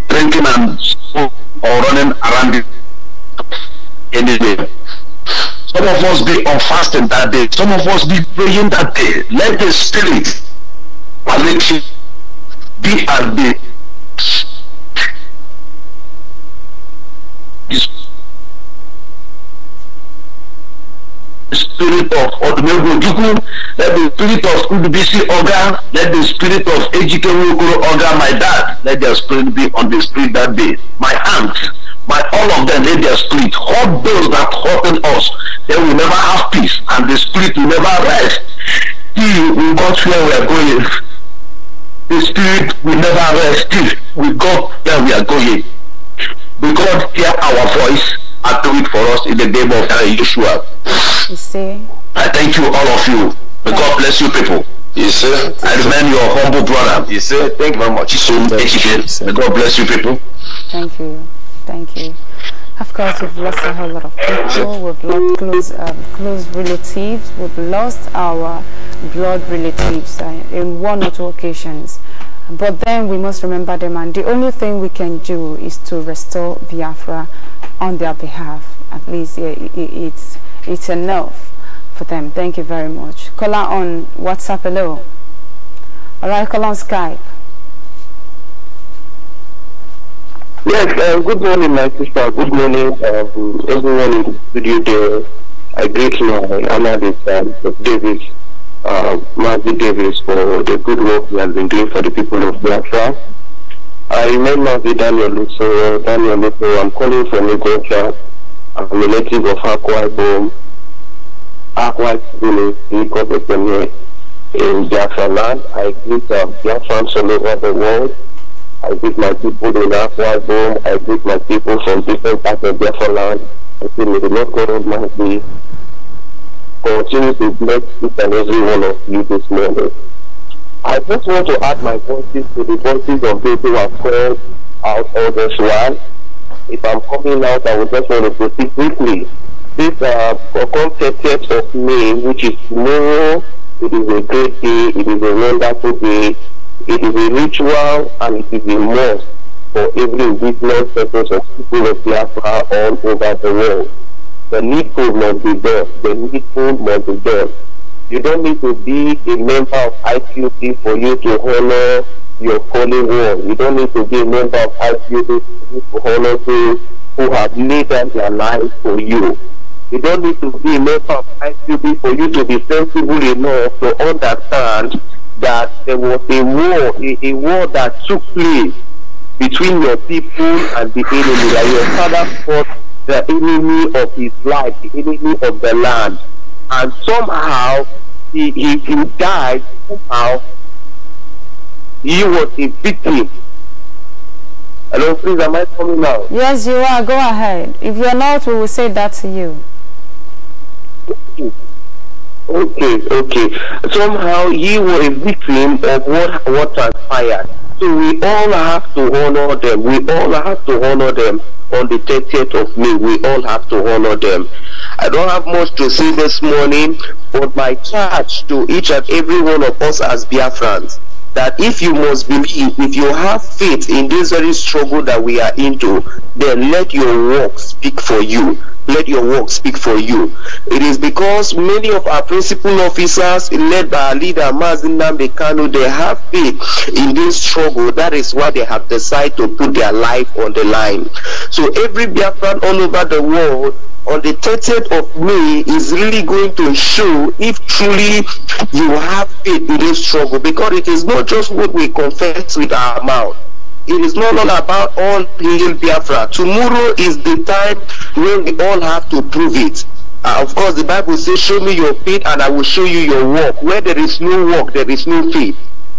Drinking and or running around the day. Some of us be on fasting that day. Some of us be praying that day. Let the spirit be at the spirit of Odumegwu Ojukwu, let the spirit of Udubisi organ, let the spirit of Ejike Nwokoro my dad, let their spirit be on the street that day. My aunt, my all of them let their spirit. All those that threaten us, they will never have peace and the spirit will never rest. Till we got where we are going. The spirit will never rest till we got where we are going. Because hear our voice and do it for us in the name of Yeshua. You see? I thank you, all of you. May yeah. God bless you people. You see? I remember your humble brother. You see? Thank you very much. So educated. May God bless you people. Thank you. Thank you. Of course, we've lost a whole lot of people. We've lost close, um, close relatives. We've lost our blood relatives uh, in one or two occasions. But then we must remember them, and the only thing we can do is to restore Biafra on their behalf. At least uh, it, it's it's enough for them. Thank you very much. Call out on WhatsApp, hello. All right, call on Skype. Yes, uh, good morning, my sister. Good morning, um, everyone in the studio there. I greet you, analyst, Davis, uh, Matthew Davis, for the good work you have been doing for the people of Biafra. I remember the Daniel Lusso, Daniel I'm calling from Lagos, a relative of Akwa Ibom, Akwa Ibom speak of Ekene in Biafra I greet uh, um, Biafrans all over the world. I greet my people in Akwa Ibom. I greet my people from different parts of Biafra land. I say may the Lord God Almighty continue to bless each and every one of you this morning. I just want to add my voices to the voices of people who have called out all this while if I'm coming out, I would just want to proceed quickly. This uh, on 30th of May, which is tomorrow, it is a great day, it is a wonderful day, it is a ritual, and it is a must for every indigenous purpose of people of Biafra all over the world. The needful must be done. The needful must be done. You don't need to be a member of IQP for you to honor your holy war. You don't need to be a member of ICU to honor those who have laid down their lives for you. You don't need to be a member of ICB for you to be sensible enough to understand that there was a war, a, a war that took place between your people and the enemy. That your father fought the enemy of his life, the enemy of the land. And somehow he, he, he died somehow he was a victim. Hello, please, am I coming now? Yes, you are. Go ahead. If you're not, we will say that to you. Okay, okay. Somehow he was a victim of what, what transpired. So we all have to honor them. We all have to honor them on the 30th of May. We all have to honor them. I don't have much to say this morning, but my charge to each and every one of us as Biafrans that if you must believe, if you have faith in this very struggle that we are into, then let your work speak for you. Let your work speak for you. It is because many of our principal officers, led by our leader Mazin Namdekano, they have faith in this struggle. That is why they have decided to put their life on the line. So every Biafran all over the world on the 30th of May is really going to show if truly you have faith in this struggle because it is not just what we confess with our mouth. It is not all about all hail Biafra. Tomorrow is the time when we all have to prove it. Uh, of course, the Bible says, show me your faith and I will show you your work. Where there is no work, there is no faith.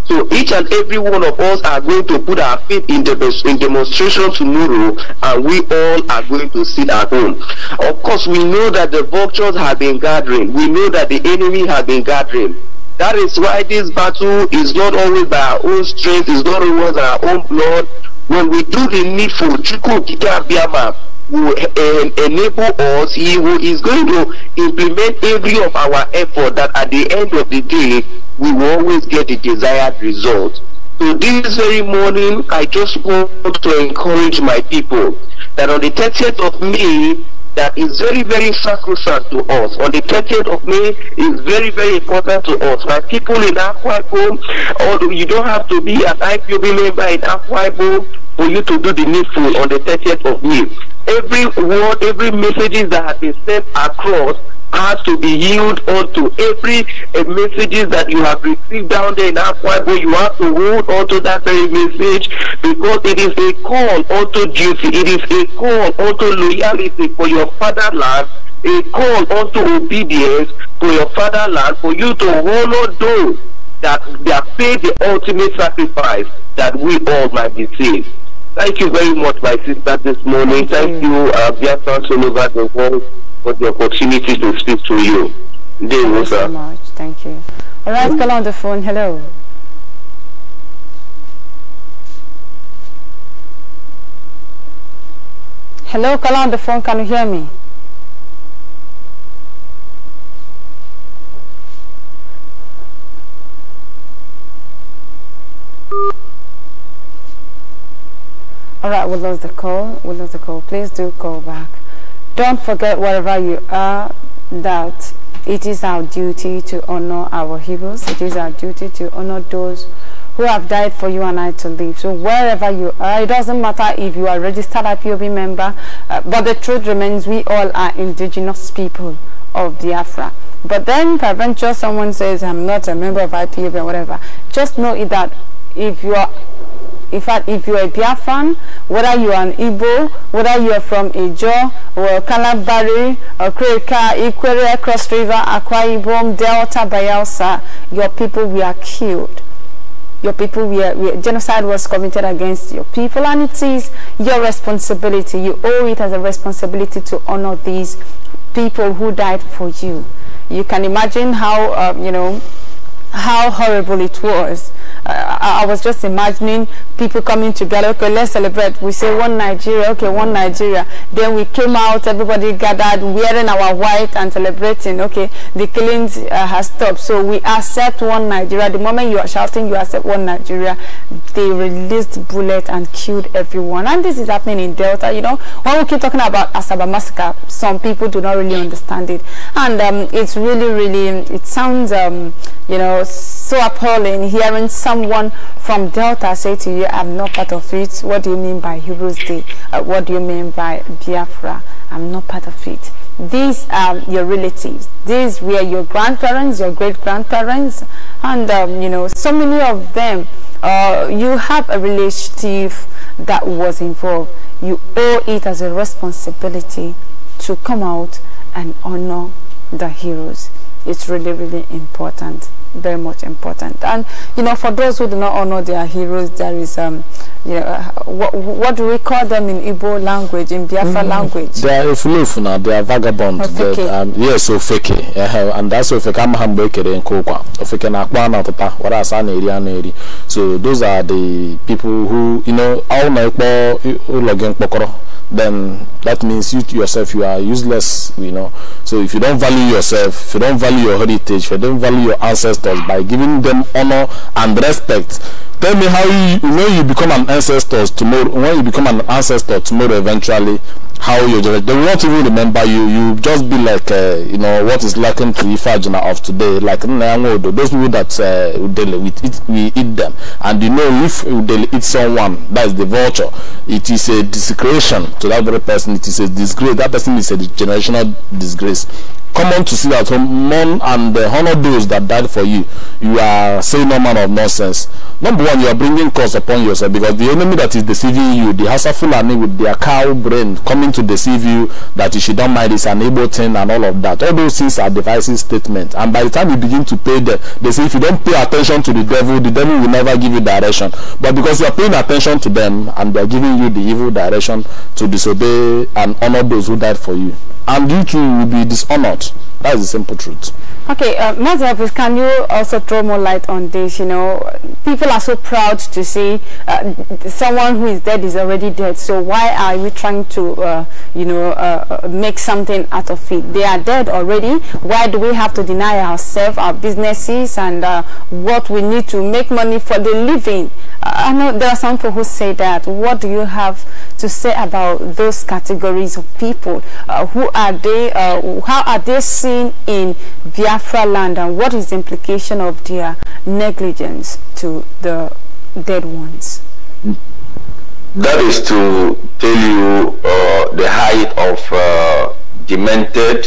So each and every one of us are going to put our feet in, the in demonstration tomorrow, and we all are going to sit at home. Of course, we know that the vultures have been gathering. We know that the enemy has been gathering. That is why this battle is not always by our own strength, it's not always our own blood. When we do the needful, Biama, will um, enable us, He who is going to implement every of our effort that at the end of the day, we will always get the desired result. So this very morning, I just want to encourage my people that on the 30th of May, that is very, very sacrosanct to us. On the 30th of May is very, very important to us. My people in Aquaibo, although you don't have to be an IPOB member in Aquaibo for you to do the needful on the 30th of May every word, every messages that has been sent across has to be yielded to every uh, messages that you have received down there in why, Bible. You have to hold onto that very message because it is a call onto duty. It is a call onto loyalty for your fatherland. A call onto obedience for your fatherland for you to honor those that they have paid the ultimate sacrifice that we all might be saved. Thank you very much, my sister, this morning. Thank, Thank you, you uh, the world, for the opportunity to speak to you. Thank you so much. Thank you. All right, call on the phone. Hello. Hello, call on the phone. Can you hear me? All right, we lost the call. We lost the call. Please do call back. Don't forget, wherever you are, that it is our duty to honor our heroes. It is our duty to honor those who have died for you and I to live. So wherever you are, it doesn't matter if you are registered IPOB member, uh, but the truth remains we all are indigenous people of Biafra. But then peradventure someone says, I'm not a member of IPOB or whatever. Just know that if you are in fact, if you're a fan whether you're an Igbo, whether you're from Ijo or or Okreka, Ikwere, Cross River, Akwa Ibom, Delta, Bayelsa, your people were killed. Your people were, were, genocide was committed against your people and it is your responsibility. You owe it as a responsibility to honor these people who died for you. You can imagine how, um, you know, how horrible it was. Uh, I, I was just imagining people coming together. Okay, let's celebrate. We say one Nigeria. Okay, one Nigeria. Then we came out. Everybody gathered, wearing our white and celebrating. Okay, the killings uh, has stopped. So we accept one Nigeria. The moment you are shouting, you accept one Nigeria. They released bullet and killed everyone. And this is happening in Delta. You know, when we keep talking about Asaba massacre, some people do not really understand it. And um, it's really, really, it sounds, um, you know, was so appalling hearing someone from Delta say to you, I'm not part of it. What do you mean by Heroes Day? Uh, what do you mean by Biafra? I'm not part of it. These are your relatives. These were your grandparents, your great-grandparents, and, um, you know, so many of them. Uh, you have a relative that was involved. You owe it as a responsibility to come out and honor the heroes. It's really, really important very much important. And you know, for those who do not honor their heroes, there is um, you know, uh, what, what do we call them in Igbo language, in Biafra mm language? They are now. they are vagabonds. Um, yes, Ofeke. Uh, and that's Ofeke Amahambekere in Kokwa. Ofeke Nakwana Tata, whereas Aneri Aneri. So those are the people who, you know, all my Ulogen Pokoro. Then that means you yourself, you are useless, you know. So if you don't value yourself, if you don't value your heritage, if you don't value your ancestors, ancestors by giving them honor and respect. Tell me how you, when you become an ancestor tomorrow, when you become an ancestor tomorrow eventually, how you they will not even remember you. You just be like, uh, you know, what is lacking to Ifajina of today, like those people that uh, we, eat, we eat them. And you know, if they eat someone, that is the vulture. It is a desecration to that very person. It is a disgrace. That person is a generational disgrace common to see that mourn and uh, honor those that died for you. You are saying no man of nonsense. Number one, you are bringing curse upon yourself because the enemy that is deceiving you, the Hausa Fulani with their cow brain coming to deceive you that you should not mind is an able thing and all of that. All those things are devices, statements. And by the time you begin to pay them, they say if you don't pay attention to the devil, the devil will never give you direction. But because you are paying attention to them and they are giving you the evil direction to disobey and honor those who died for you and you too will be dishonored. That is the simple truth. Okay, uh, Mazabis, can you also throw more light on this? You know, people are so proud to see uh, someone who is dead is already dead. So why are we trying to, uh, you know, uh, uh make something out of it? They are dead already. Why do we have to deny ourselves, our businesses, and uh, what we need to make money for the living? Uh, I know there are some people who say that. What do you have to say about those categories of people? who are they? how are they seen in their Biafra land and what is the implication of their negligence to the dead ones? That is to tell you uh, the height of uh, demented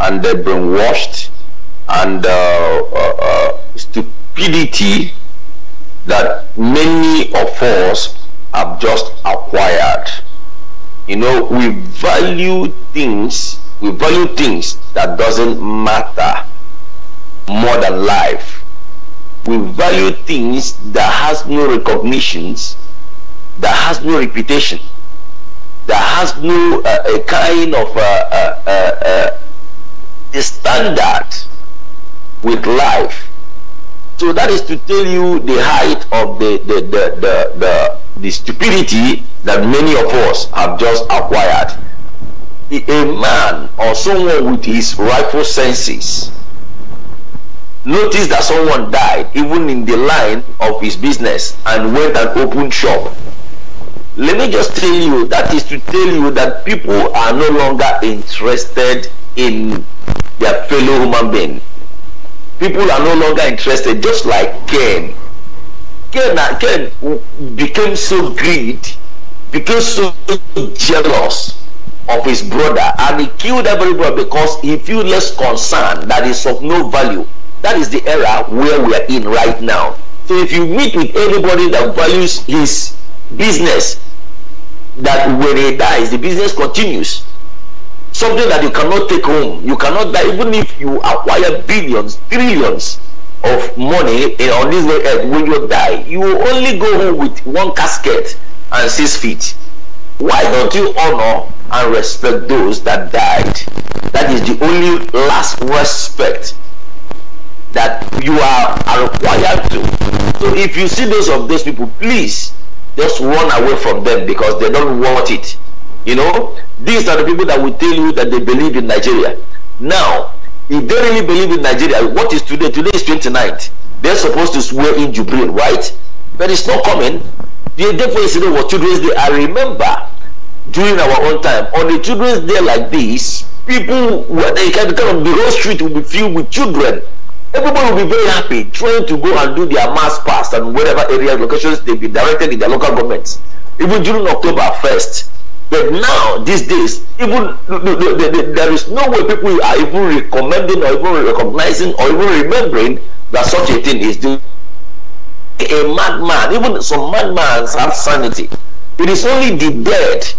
and brainwashed and uh, uh, uh, stupidity that many of us have just acquired. You know, we value things we value things that doesn't matter more than life we value things that has no recognitions that has no reputation that has no uh, a kind of uh, uh, uh, uh standard with life so that is to tell you the height of the the the, the, the, the stupidity that many of us have just acquired a man or someone with his rightful senses noticed that someone died even in the line of his business and went and opened shop let me just tell you that is to tell you that people are no longer interested in their fellow human being people are no longer interested just like cain cain, cain became so greedy became so jealous of his brother and he killed everybody because he feels concern that is of no value. That is the era where we are in right now. So if you meet with anybody that values his business, that when he dies, the business continues. Something that you cannot take home. You cannot die even if you acquire billions, trillions of money on this earth when you die. You will only go home with one casket and six feet. Why don't you honor and respect those that died. That is the only last respect that you are, are required to. So if you see those of those people, please just run away from them because they don't want it. You know, these are the people that will tell you that they believe in Nigeria. Now, if they really believe in Nigeria, what is today? Today is 29th. They're supposed to swear in Jubril, right? But it's not coming. The day for yesterday was Children's Day. I remember during our own time. On a children's day like this, people when they can come the whole street will be filled with children. Everybody will be very happy trying to go and do their mass pass and whatever areas, locations they've been directed in their local governments. Even during October 1st, but now, these days, even the, the, the, there is no way people are even recommending or even recognizing or even remembering that such a thing is doing. A madman, even some madmen have sanity. It is only the dead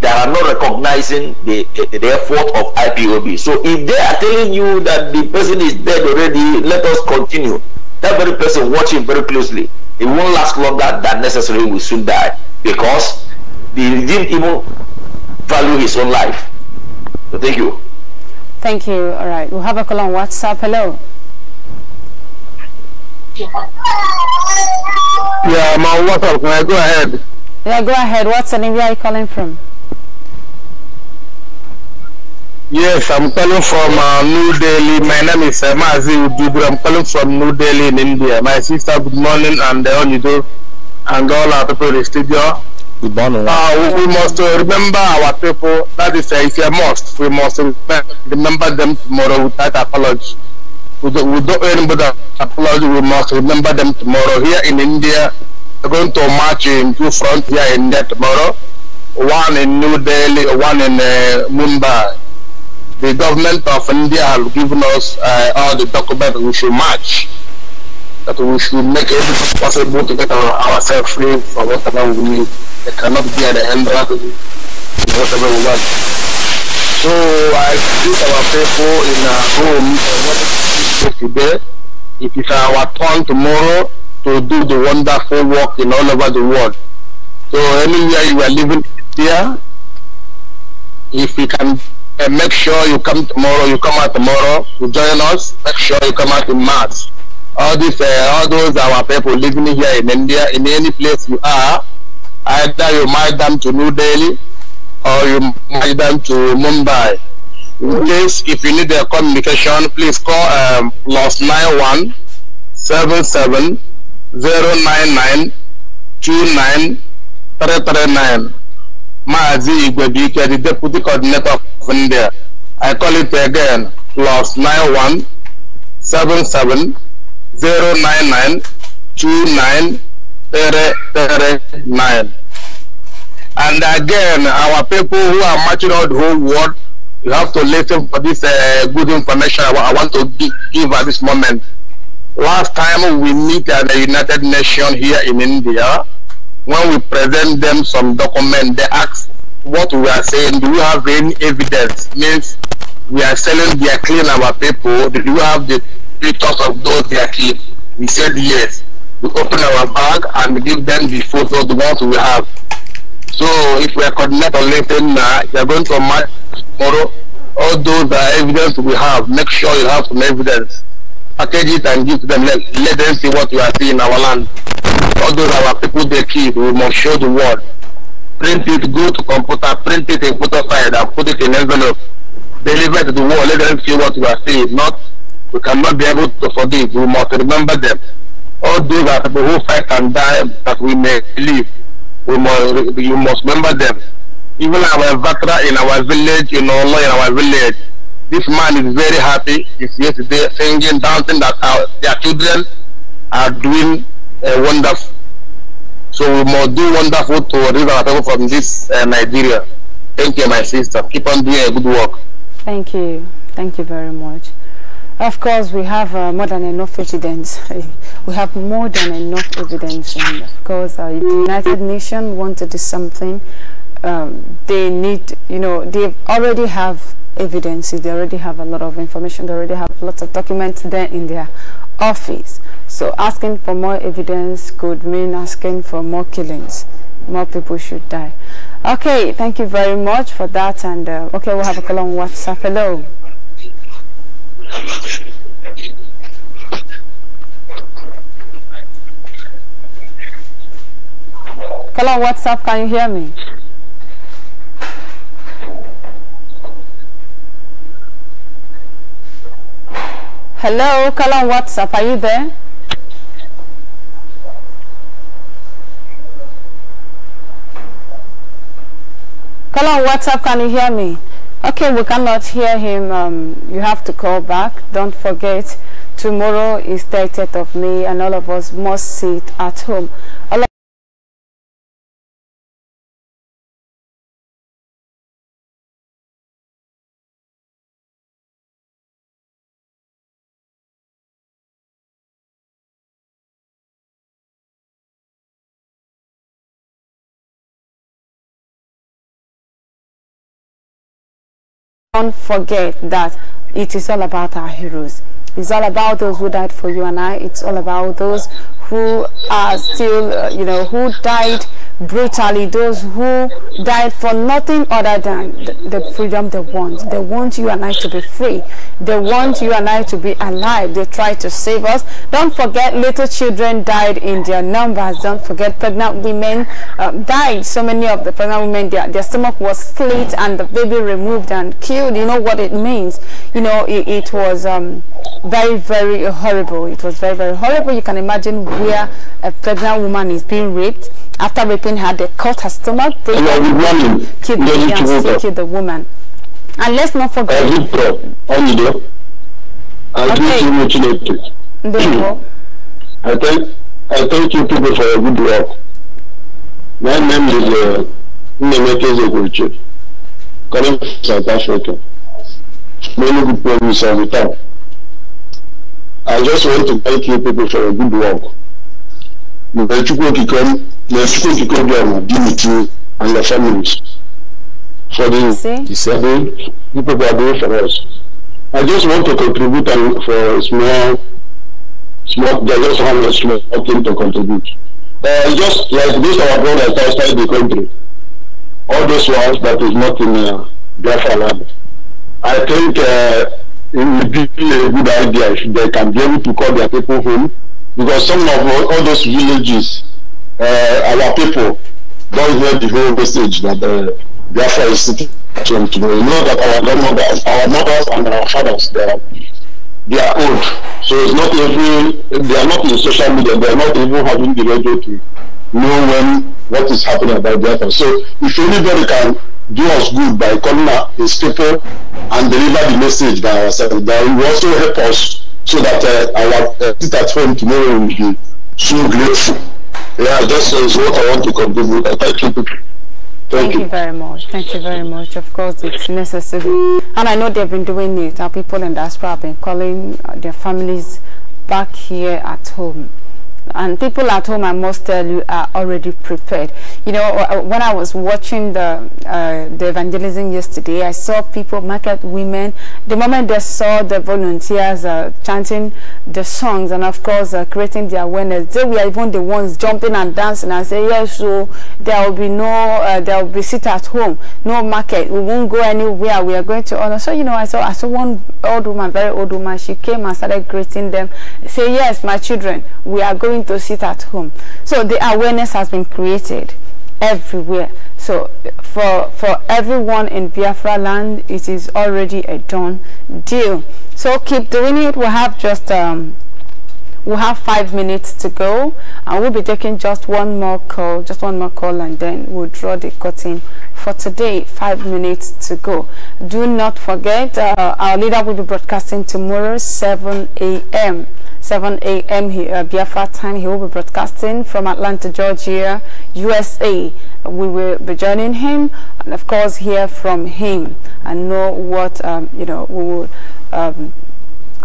that are not recognizing the, the effort of IPOB. So if they are telling you that the person is dead already, let us continue. That very person, watching very closely. It won't last longer than necessary. Will soon die because he didn't even value his own life. So thank you. Thank you. All right, have a call on WhatsApp. Hello. Yeah, my WhatsApp. Can I go ahead? Yeah, go ahead. What's the name? Where are you calling from? Yes, I'm calling from uh, New Delhi. My name is uh, Mazi I'm calling from New Delhi in India. My sister, good morning, and uh, you do, and all our people in the studio. Good morning. Uh, we must uh, remember our people. That is, uh, it's a must. We must remember them tomorrow without apology. We don't, we don't apology. We must remember them tomorrow. Here in India, we're going to march in two fronts here in India tomorrow. One in New Delhi, one in uh, Mumbai the government of India have given us uh, all the documents we should match. That we should make everything possible to get our, ourselves free from whatever we need. They cannot be at the end of whatever we want. So I think our people in our home uh, today. It is our turn tomorrow to do the wonderful work in all over the world. So anywhere you are living here, if you can and make sure you come tomorrow, you come out tomorrow to join us. Make sure you come out in March. All these, uh, all those our people living here in India, in any place you are, either you might them to New Delhi or you might them to Mumbai. In case if you need their communication, please call um, plus nine one seven seven zero nine nine two nine three three nine. Mazi Igwebuike, the deputy coordinator of India. I call it again, plus 917709929339. And again, our people who are marching out the whole world, you have to listen for this uh, good information I want to give at this moment. Last time we meet at the United Nations here in India, when we present them some document, they ask what we are saying, do we have any evidence? Means we are selling their clean our people, do you have the pictures of those they are We said yes. We open our bag and give them the photos, the ones we have. So if we are coordinating later now, you are going to match tomorrow all those uh, evidence we have. Make sure you have some evidence. Package it and give to them. Let, let them see what you are seeing in our land all those our people they keep, we must show the world. Print it, go to computer, print it in photo side and put it in envelope. Deliver to the world, let them see what we are saying. Not, we cannot be able to forgive, we must remember them. All those are people who fight and die that we may live. We must, you must remember them. Even our Vatra in our village, in Olo, in our village, this man is very happy. He's yesterday singing, dancing that our, their children are doing uh, wonderful. So we must do wonderful to relieve our people from this uh, Nigeria. Thank you, my sister. Keep on doing a good work. Thank you. Thank you very much. Of course, we have uh, more than enough evidence. we have more than enough evidence. And of course, uh, the United Nations want to do something. Um, they need, you know, they already have evidence. They already have a lot of information. They already have lots of documents there in their office. So asking for more evidence could mean asking for more killings. More people should die. Okay, thank you very much for that. And uh, okay, we'll have a call on WhatsApp. Hello. Hello, WhatsApp. Can you hear me? Hello, call on WhatsApp. Are you there? Call on WhatsApp, can you hear me? Okay, we cannot hear him. Um, you have to call back. Don't forget, tomorrow is 30th of May and all of us must sit at home. don't forget that it is all about our heroes. It's all about those who died for you and I. It's all about those who are still, uh, you know, who died brutally, those who died for nothing other than the freedom they want. They want you and I to be free. They want you and I to be alive. They try to save us. Don't forget little children died in their numbers. Don't forget pregnant women um, died. So many of the pregnant women, their, their stomach was slit and the baby removed and killed. You know what it means. You know, it, it was um, very, very horrible. It was very, very horrible. You can imagine where a pregnant woman is being raped. After raping her, they cut her stomach, break her, woman, kill the, young, kill the woman. And let's not forget. Okay. There you go. I thank, I thank you people for your good work. My name is uh, Nemete coming from South Africa. Many good people in South I just want to thank you people for your good work may Chukwu Okike may Chukwu Okike God be with you and your families for the for the people who are doing for us. I just want to contribute and for a small small they just have a small thing to contribute. Uh, just like this our brothers outside the country. All those ones that is not in uh, Biafra land. I think uh, it would be a good idea if they can be able to call their people home because some of all those villages, uh, our people don't hear the whole message that the uh, Biafra is sitting to today. You know that our grandmothers, our mothers and our fathers, they are, they are old. So it's not even, they are not in social media, they are not even having the radio to know when what is happening about Biafra. So if anybody can do us good by calling his people and deliver the message by ourselves, that will also help us so that uh, our uh, at home tomorrow will be so grateful. Yeah, that uh, is what I want to contribute. Thank you. Thank, Thank you. you. very much. Thank you very much. Of course, it's necessary. And I know they've been doing it. Our people in diaspora have been calling uh, their families back here at home and people at home, I must tell you, are already prepared. You know, uh, uh, when I was watching the uh, the evangelism yesterday, I saw people, market women. The moment they saw the volunteers uh, chanting the songs and, of course, uh, creating the awareness, they were even the ones jumping and dancing and saying, "Yes, so there will be no, uh, there will be sit at home, no market. We won't go anywhere. We are going to honor." So you know, I saw I saw one old woman, very old woman. She came and started greeting them, say, "Yes, my children, we are going." going to sit at home. So the awareness has been created everywhere. So for for everyone in Biafra land, it is already a done deal. So keep doing it. We have just um, We'll have five minutes to go and we'll be taking just one more call, just one more call and then we'll draw the curtain for today, five minutes to go. Do not forget, uh, our leader will be broadcasting tomorrow, 7 a.m. 7 a.m. here, uh, Biafra time. He will be broadcasting from Atlanta, Georgia, USA. We will be joining him and, of course, hear from him and know what, um, you know, we will um,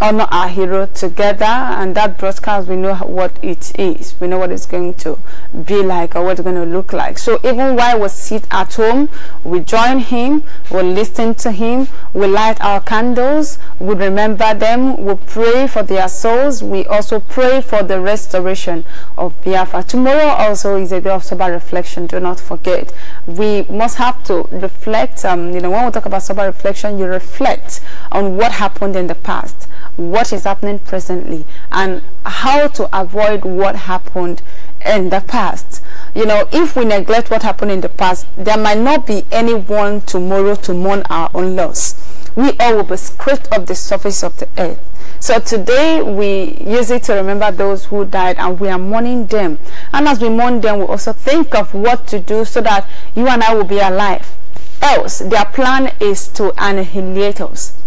honor our hero together and that broadcast we know what it is we know what it's going to be like or what it's going to look like so even while we sit at home we join him we listen to him we light our candles we remember them we pray for their souls we also pray for the restoration of biafra tomorrow also is a day of sober reflection do not forget we must have to reflect um, you know when we talk about sober reflection you reflect on what happened in the past what is happening presently and how to avoid what happened in the past. You know, if we neglect what happened in the past, there might not be anyone tomorrow to mourn our own loss. We all will be scraped off the surface of the earth. So today we use it to remember those who died and we are mourning them. And as we mourn them, we also think of what to do so that you and I will be alive. Else, their plan is to annihilate us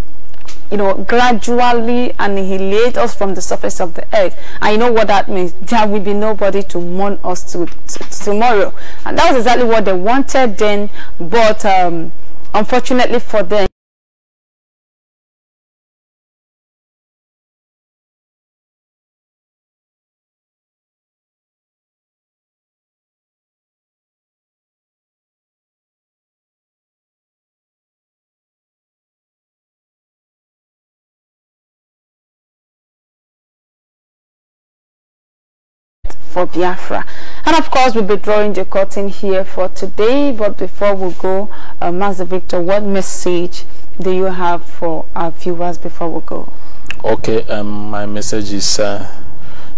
you know, gradually annihilate us from the surface of the earth. I know what that means. There will be nobody to mourn us to, to tomorrow. And that was exactly what they wanted then, but um, unfortunately for them, for Biafra. And of course, we'll be drawing the curtain here for today. But before we go, uh, Master Victor, what message do you have for our viewers before we go? Okay, um, my message is uh,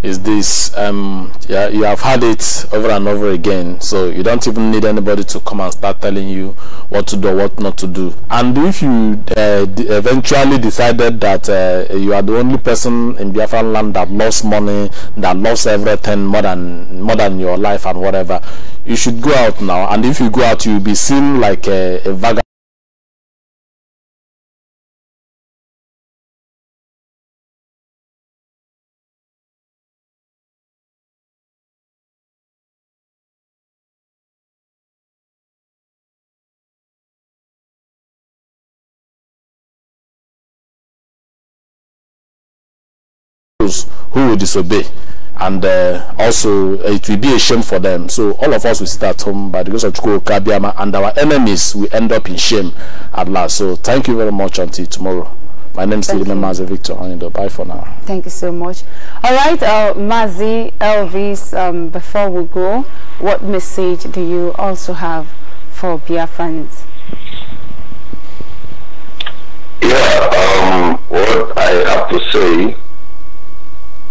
is this um yeah you have had it over and over again so you don't even need anybody to come and start telling you what to do what not to do and if you uh, eventually decided that uh, you are the only person in biafran land that lost money that lost everything more than more than your life and whatever you should go out now and if you go out you'll be seen like a, a vagabond those who will disobey and uh, also it will be a shame for them so all of us will sit at home by the grace of Chukwukabiama and our enemies will end up in shame at last so thank you very much until tomorrow my name is Lilima Mazi Victor Onido. Uh, bye for now. Thank you so much. All right, uh, Mazi Elvis, um, before we go, what message do you also have for Biafrans? Yeah, um, what I have to say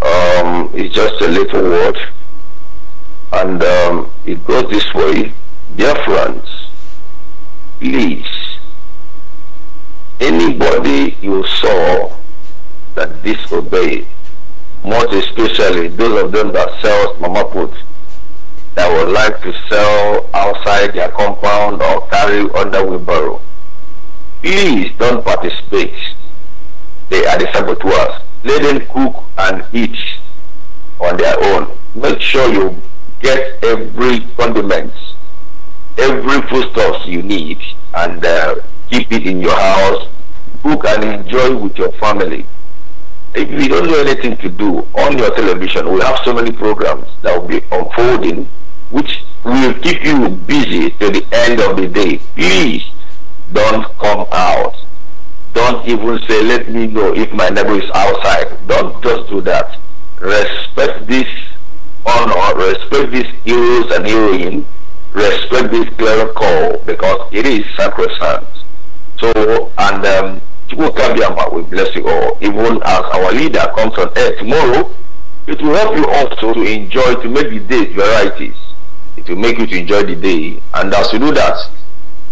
um, it's just a little word, and um, it goes this way. Dear friends, please, anybody you saw that disobeyed, most especially those of them that sells mama put, that would like to sell outside their compound or carry under wheelbarrow, please don't participate. They are the saboteurs. Let them cook and eat on their own. Make sure you get every condiments, every foodstuffs you need and uh, keep it in your house. Cook and enjoy with your family. If you don't know anything to do on your television, we have so many programs that will be unfolding which will keep you busy till the end of the day. Please don't come out don't even say, let me know if my neighbor is outside. Don't just do that. Respect this honor, respect these heroes and heroine, respect this clear call because it is sacrosanct. So, and um, will can be about, we bless you all. Even as our leader comes on air tomorrow, it will help you also to enjoy, to make the day varieties. It will make you to enjoy the day. And as you do that,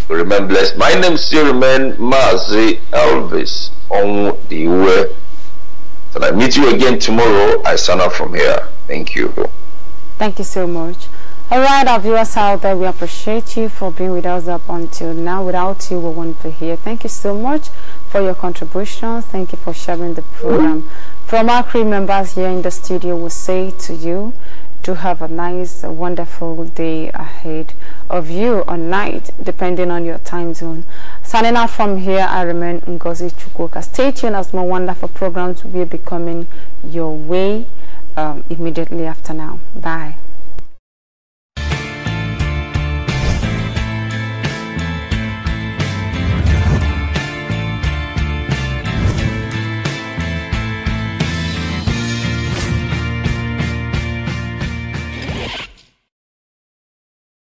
Remembrance. My name still remains Mazi Elvis on the way. So I meet you again tomorrow. I sign off from here. Thank you. Thank you so much. All right, our viewers out there, we appreciate you for being with us up until now. Without you, we wouldn't be here. Thank you so much for your contributions. Thank you for sharing the program. From our crew members here in the studio, we we'll say to you, to have a nice, wonderful day ahead of you or night, depending on your time zone. Signing out from here, I remain Ngozi Chukwuka. Stay tuned as more wonderful programs will be coming your way um, immediately after now. Bye.